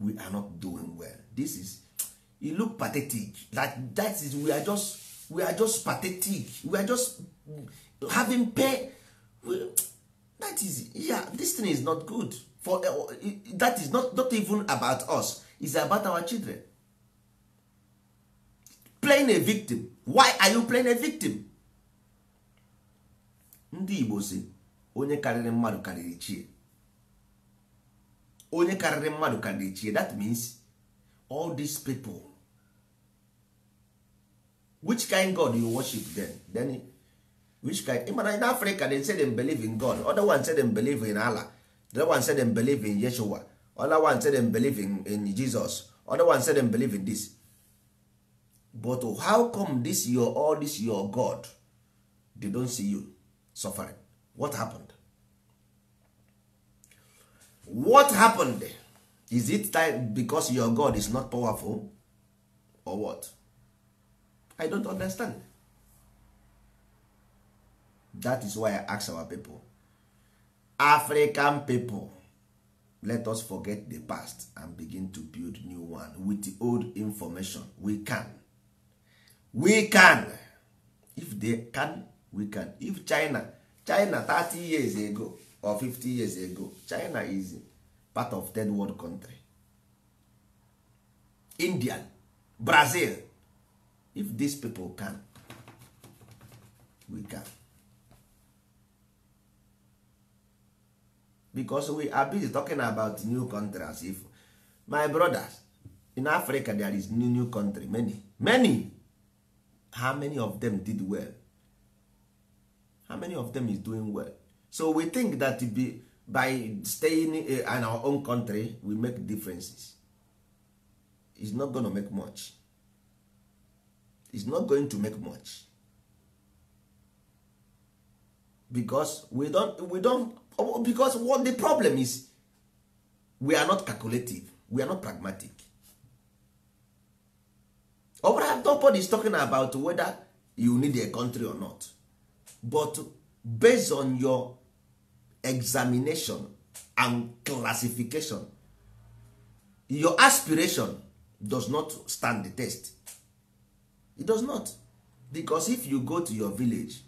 we are not doing well this is you look pathetic that that is we are just we are just pathetic we are just having pay well that is yeah this thing is not good for uh, that is not not even about us it's about our children playing a victim why are you playing a victim ndị Igbo si onye karịrị mmadụ karịrị chie onye karịrị mmadụ karịrị chie that means all these people which kind god you worship then then which kind mana in africa they say them believe in god other one say them believe in allah the other one say them believe in yeshua other one say them believe in, in jesus other one say them believe in this but how come this your all this your god they don't see you suffering what happened what happened is it time because your god is not powerful or what i don't understand that is why i ask our people african people let us forget the past and begin to build new one with the old information we can we can if they can we can if china china 30 years ago or 50 years ago china is part of third world country indian brazil if these people can we can because we are busy talking about new countries. if my brothers in africa there is new new country many many how many of them did well how many of them is doing well so we think that be, by staying eh, in our own country we make differences It's not going to make much is not going to make much because we don't we don't because what the problem is we are not calculative we are not pragmatic Overhead bụrụ nobody is talking about whether you need a country or not but based on your examination and classification your aspiration does not stand the test it does not because if you go to your village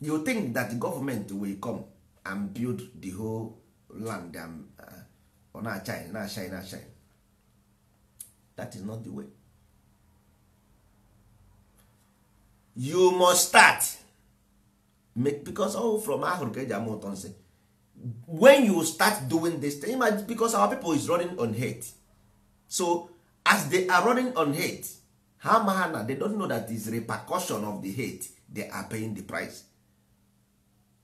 you think that the government will come and build the whole land on ọ na-achine shine. na is not the way you must start because all oh, from ahụrụ eji ama ụtọ nsị when you start doing this thing because our people is running on hate so as they are running on hate ha ma ha na they don't know that is repercussion of the hate they are paying the price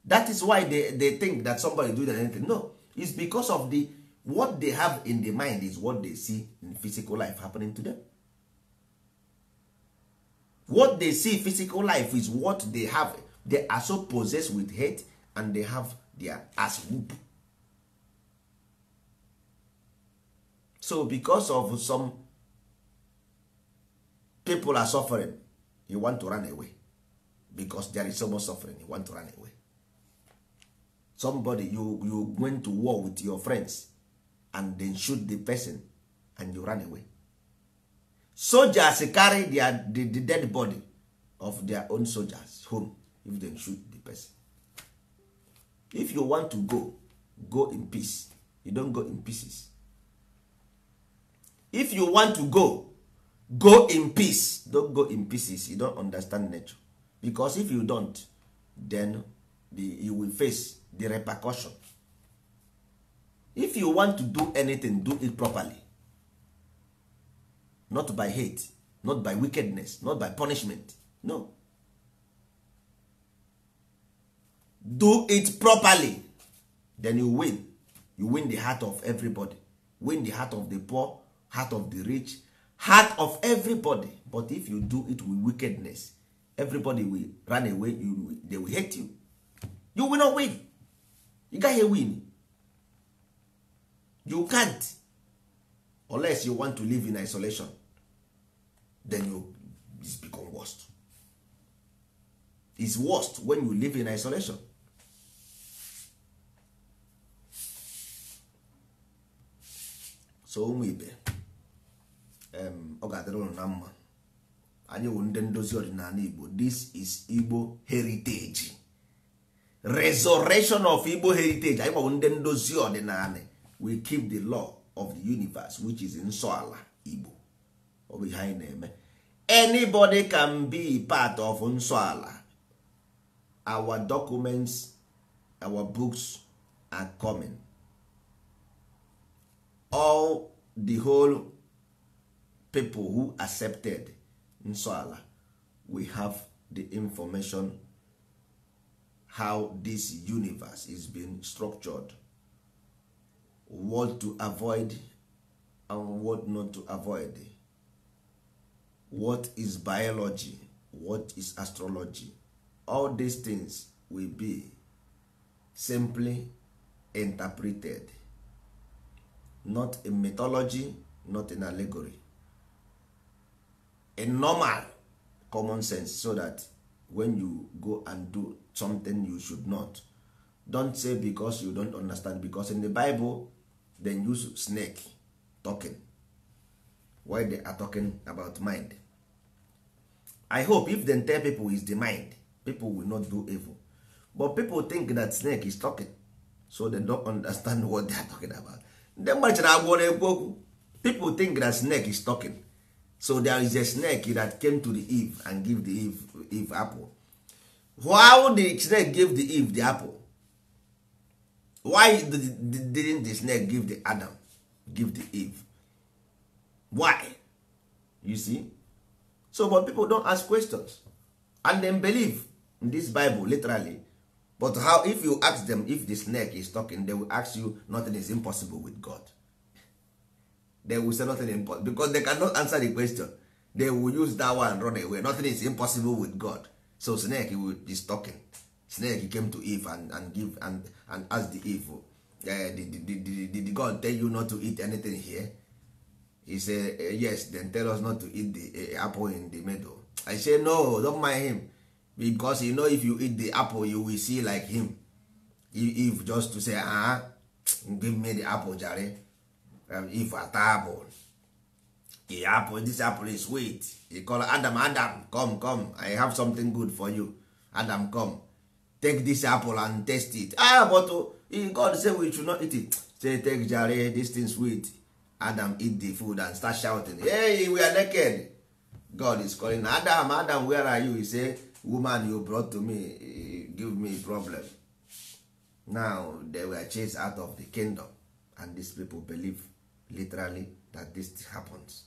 that is why they, they think that somebody do that anything no it's because of the what they have in the mind is what they see in physical life happening to them what they see physical life is what they have they are so possessed with hate and they have their ass whoop so because of some people are suffering you want to run away because there is so much suffering you want to run away somebody you you went to war with your friends and then shoot the person and you run away soldiers carry their, the, the dead body of their own soldiers home if they shoot the person if you want to go go in peace you don't go in pieces if you want to go go in peace don't go in pieces you don't understand nature because if you don't then the, you will face the repercussion if you want to do anything do it properly not by hate not by wickedness not by punishment no do it properly then you win you win the heart of everybody win the heart of the poor heart of the rich heart of everybody but if you do it with wickedness everybody will run away you, they will hate you you will not win you gaghị win you can't unless you want to live in isolation then you it's become worst It's worst when you live in isolation so ụmụ ibe ọ ga-adịrị ụlọ na mma anyị wụ ndị ndozi ọdịnala igbo this is igbo heritage resurrection of igbo heritage anyị gbagbụ ndị ndozi ọdịnala we keep the law of the universe which is nsọ ala igbo ọ bụ ihe anyị na-eme anybody can be part of nsọ ala our documents our books are coming all the whole people who accepted nsọala we have the information how this universe is being structured what to avoid and what not to avoid what is biology what is astrology all these things will be simply interpreted not in mythology not in allegory a normal common sense so that when you go and do something you should not don't say because you don't understand because in the bible then use snake talking why they are talking about mind i hope if they tell people is the mind people will not do evil but people think that snake is talking so they don't understand what they are talking about ndị gbachara agwọ na-ekwu okwu people think that snake is talking so there is a snake that came to the eve and give the eve, eve apple why the snake give the eve the apple why didn't the snake give the adam give the eve why you see so but people don't ask questions and then believe in this bible literally but how if you ask them if the snake is talking they will ask you nothing is impossible with god they will say nothing impossible because they cannot answer the question they will use that one run away nothing is impossible with god so snake will be talking snake came to eve and, and give and, and ask the eve uh, did, did, did, did god tell you not to eat anything here he said uh, eh, yes then tell us not to eat the uh, apple in the middle i say no don't mind him because you know if you eat the apple you will see like him eve just to say ah uh-huh, give me the apple jare um, if atable the apple this apple is sweet he call adam adam come come i have something good for you adam come take this apple and taste it ah but uh, god say we should not eat it say take jare this thing sweet adam eat the food and start shouting hey we are naked god is calling adam adam where are you he say woman you brought to me eh, give me problem now they were chased out of the kingdom and these people believe literally that this happens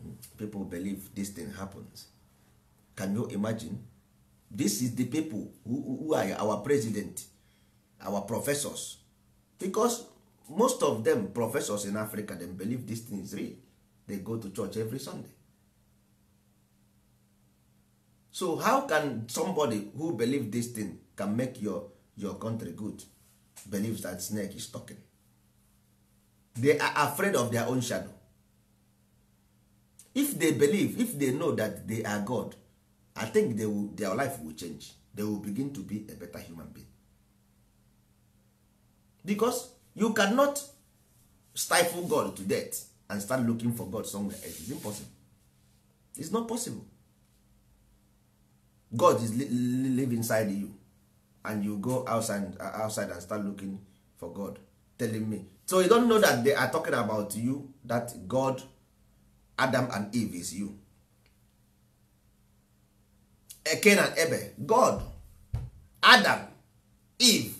hmm. people believe this thing happens can you imagine this is the people who, who are our president our professors because most of them professors in africa they believe this thing is real they go to church every sunday so how can somebody who believe this thing can make your your country good believes that snake is talking they are afraid of their own shadow if they believe if they know that they are god i think they will, their life will change they will begin to be a better human being because you cannot stifle god to death and start looking for god somewhere else It's impossible It's not possible god is li live inside you and you go outside, uh, outside and start looking for god telling me so you don't know that they are talking about you that god adam and eve is you eken eh, and ebel god adam eve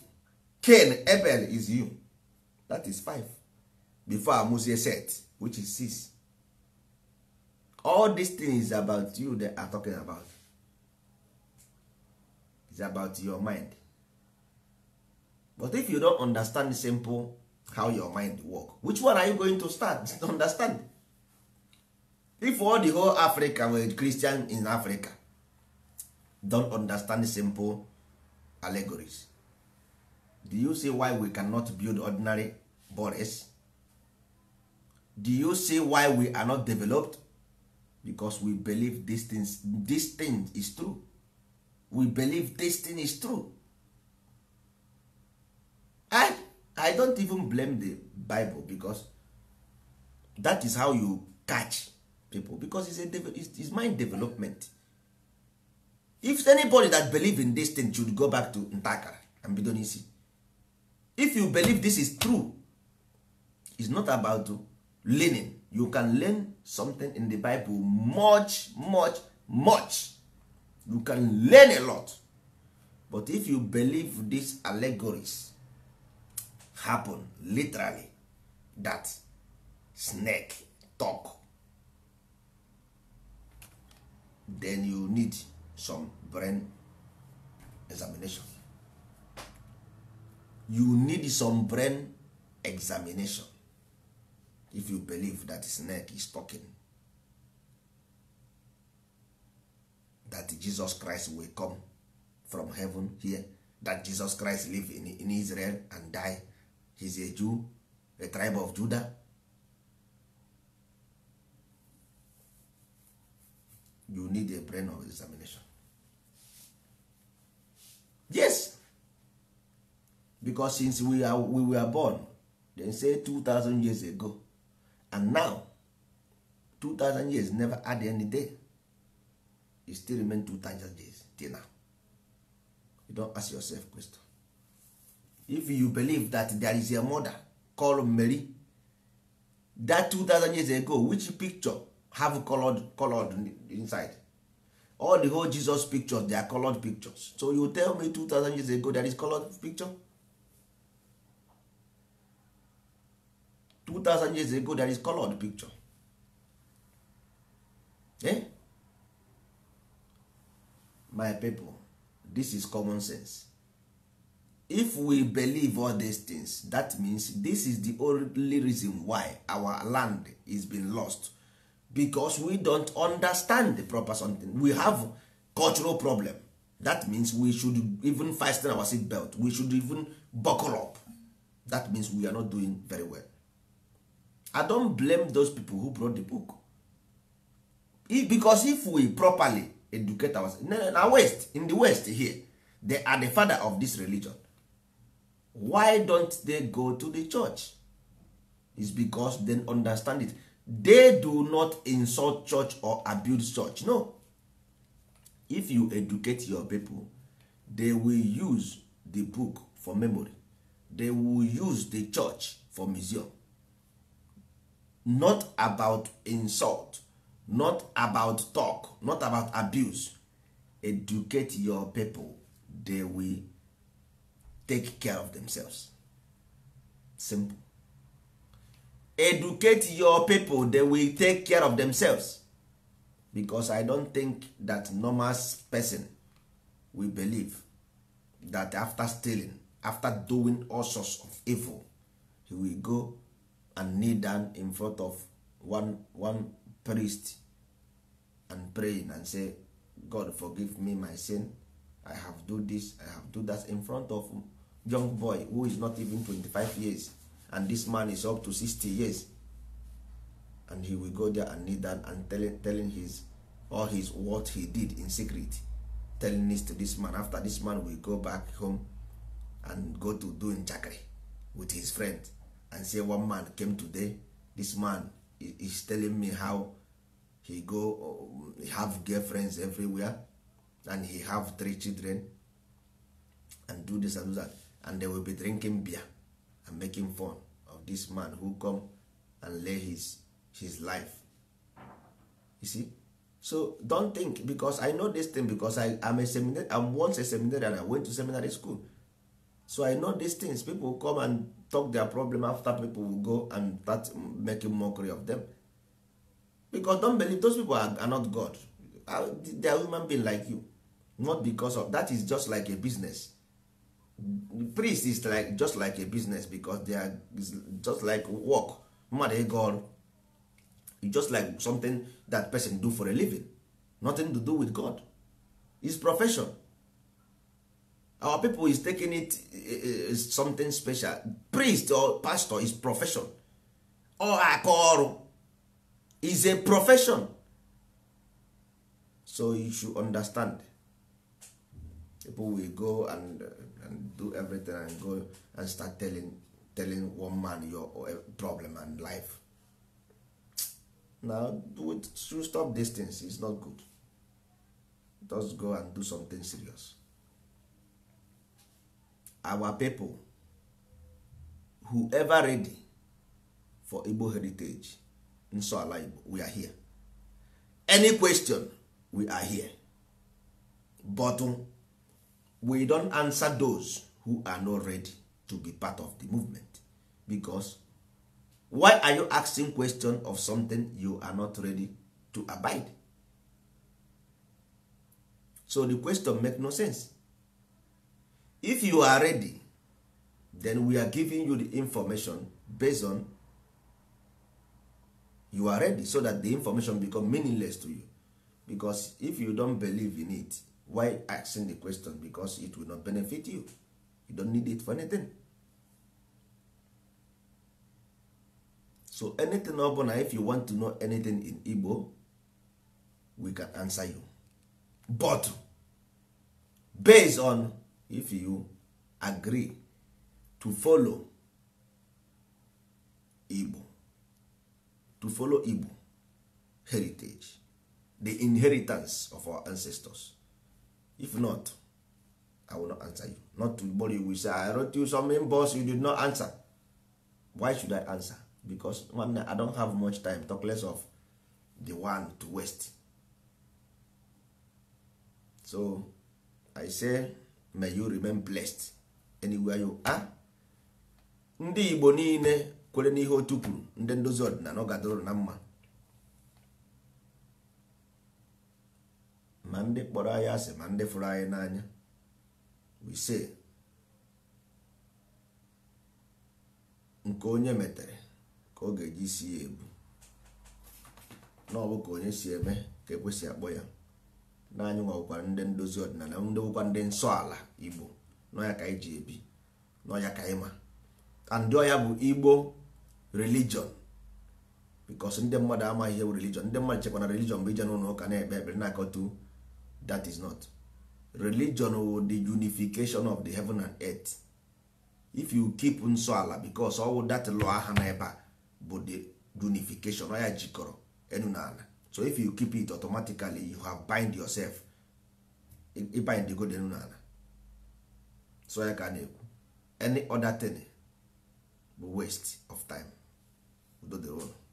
cain ebel is you that is five before amusie set which is six all these things about you they are talking about is about your mind but if you don't understand simple how your mind work which one are you going to start to understand if all the whole africa were christian in africa don't understand simple allegories do you see why we cannot build ordinary bodies do you see why we are not developed because we believe this thing, this thing is true we believe this thing is true I. Eh? i don't even blame the bible because that is how you catch people because it's, a, it's, mind development if anybody that believe in this thing should go back to ntakara and bido n'isi if you believe this is true it's not about learning you can learn something in the bible much much much you can learn a lot but if you believe these allegories happen literally that snake talk then you need some brain examination you need some brain examination if you believe that snake is talking that jesus christ will come from heaven here that jesus christ live in, in israel and die he's a jew a tribe of judah you need a brain of examination yes because since we, are, we were born they say 2000 years ago and now 2000 years never add any day it still remain 2000 years till now you don't ask yourself question if you believe that there is a mother called Mary that 2000 years ago which picture have colored colored inside all the whole Jesus pictures they are colored pictures so you tell me 2000 years ago there is colored picture 2000 years ago there is colored picture eh? my people this is common sense if we believe all these things that means this is the only reason why our land is being lost because we don't understand the proper something we have cultural problem that means we should even fasten our seat belt we should even buckle up that means we are not doing very well i don't blame those people who brought the book if, because if we properly educate ourselves in the west in the west here they are the father of this religion why don't they go to the church is because they understand it they do not insult church or abuse church no if you educate your people they will use the book for memory they will use the church for museum not about insult not about talk not about abuse educate your people they will take care of themselves simple educate your people they will take care of themselves because i don't think that normal person will believe that after stealing after doing all sorts of evil he will go and kneel down in front of one one priest and praying and say god forgive me my sin i have do this i have do that in front of young boy who is not even 25 years and this man is up to 60 years and he will go there and kneel down and telling, telling his all his what he did in secret telling this to this man after this man will go back home and go to do jackery, with his friend and say one man came today this man is telling me how he go um, have girlfriends everywhere and he have three children and do this and do that and they will be drinking beer and making fun of this man who come and lay his, his life you see so don't think because i know this thing because i am a seminary i'm once a seminary and i went to seminary school so i know these things people come and talk their problem after people will go and start making mockery of them because don't believe those people are, are not god they are human being like you not because of that is just like a business priest is like just like a business because they are just like work mmadụ ịga ọrụ just like something that person do for a living nothing to do with god is profession our people is taking it is eh, eh, something special priest or pastor is profession or aka ọrụ is a profession so you should understand people will go and uh, and do everything and go and start telling telling one man your eh, problem and life now do should stop this things is not good just go and do something serious our people whoever ready for igbo heritage nso ala igbo we are here any question we are here bottom we don't answer those who are not ready to be part of the movement because why are you asking question of something you are not ready to abide so the question make no sense if you are ready then we are giving you the information based on you are ready so that the information become meaningless to you because if you don't believe in it why asking the question because it will not benefit you you don't need it for anything so anything ọbụla if you want to know anything in igbo we can answer you but based on if you agree to follow igbo to follow igbo heritage the inheritance of our ancestors if not i will not answer you not to worry you say i wrote you something boss you did not answer why should i answer because i don't have much time talk less of the one to waste so i say may you remain blessed anywhere you are ndị igbo niile kwere n'ihe otu kwuru ndị ndozi ọdịnala ọ gadoro na mma ma ndị kpọrọ anyị asị ma ndị fụrụ anyị n'anya wise nke onye metere ka ọ ga-eji si ya ebu na ọ bụ ka onye si eme ka ekwesị akpọ ya n'anyị nwekwa ndị ndozi ọdịnala ndị nwekwa ndị nsọ ala igbo n'ọya ka anyị ji ebi n'ọya ka anyị ma ndị ọya bụ igbo religion bikos ndị mmadụ amaghị ihe bụ religion ndị mmadụ chekwa na religion bụ ije n'ụlọ ụka na-ekpe ekpere na akọta that is not religion or oh, the unification of the heaven and earth if you keep nsọ ala because all that law aha na ebe a bụ the unification ọ jikọrọ enu na ala so if you keep it automatically you have bind yourself ibind go enu na ala so ya ka na-ekwu any other thing bụ waste of time udo dịrị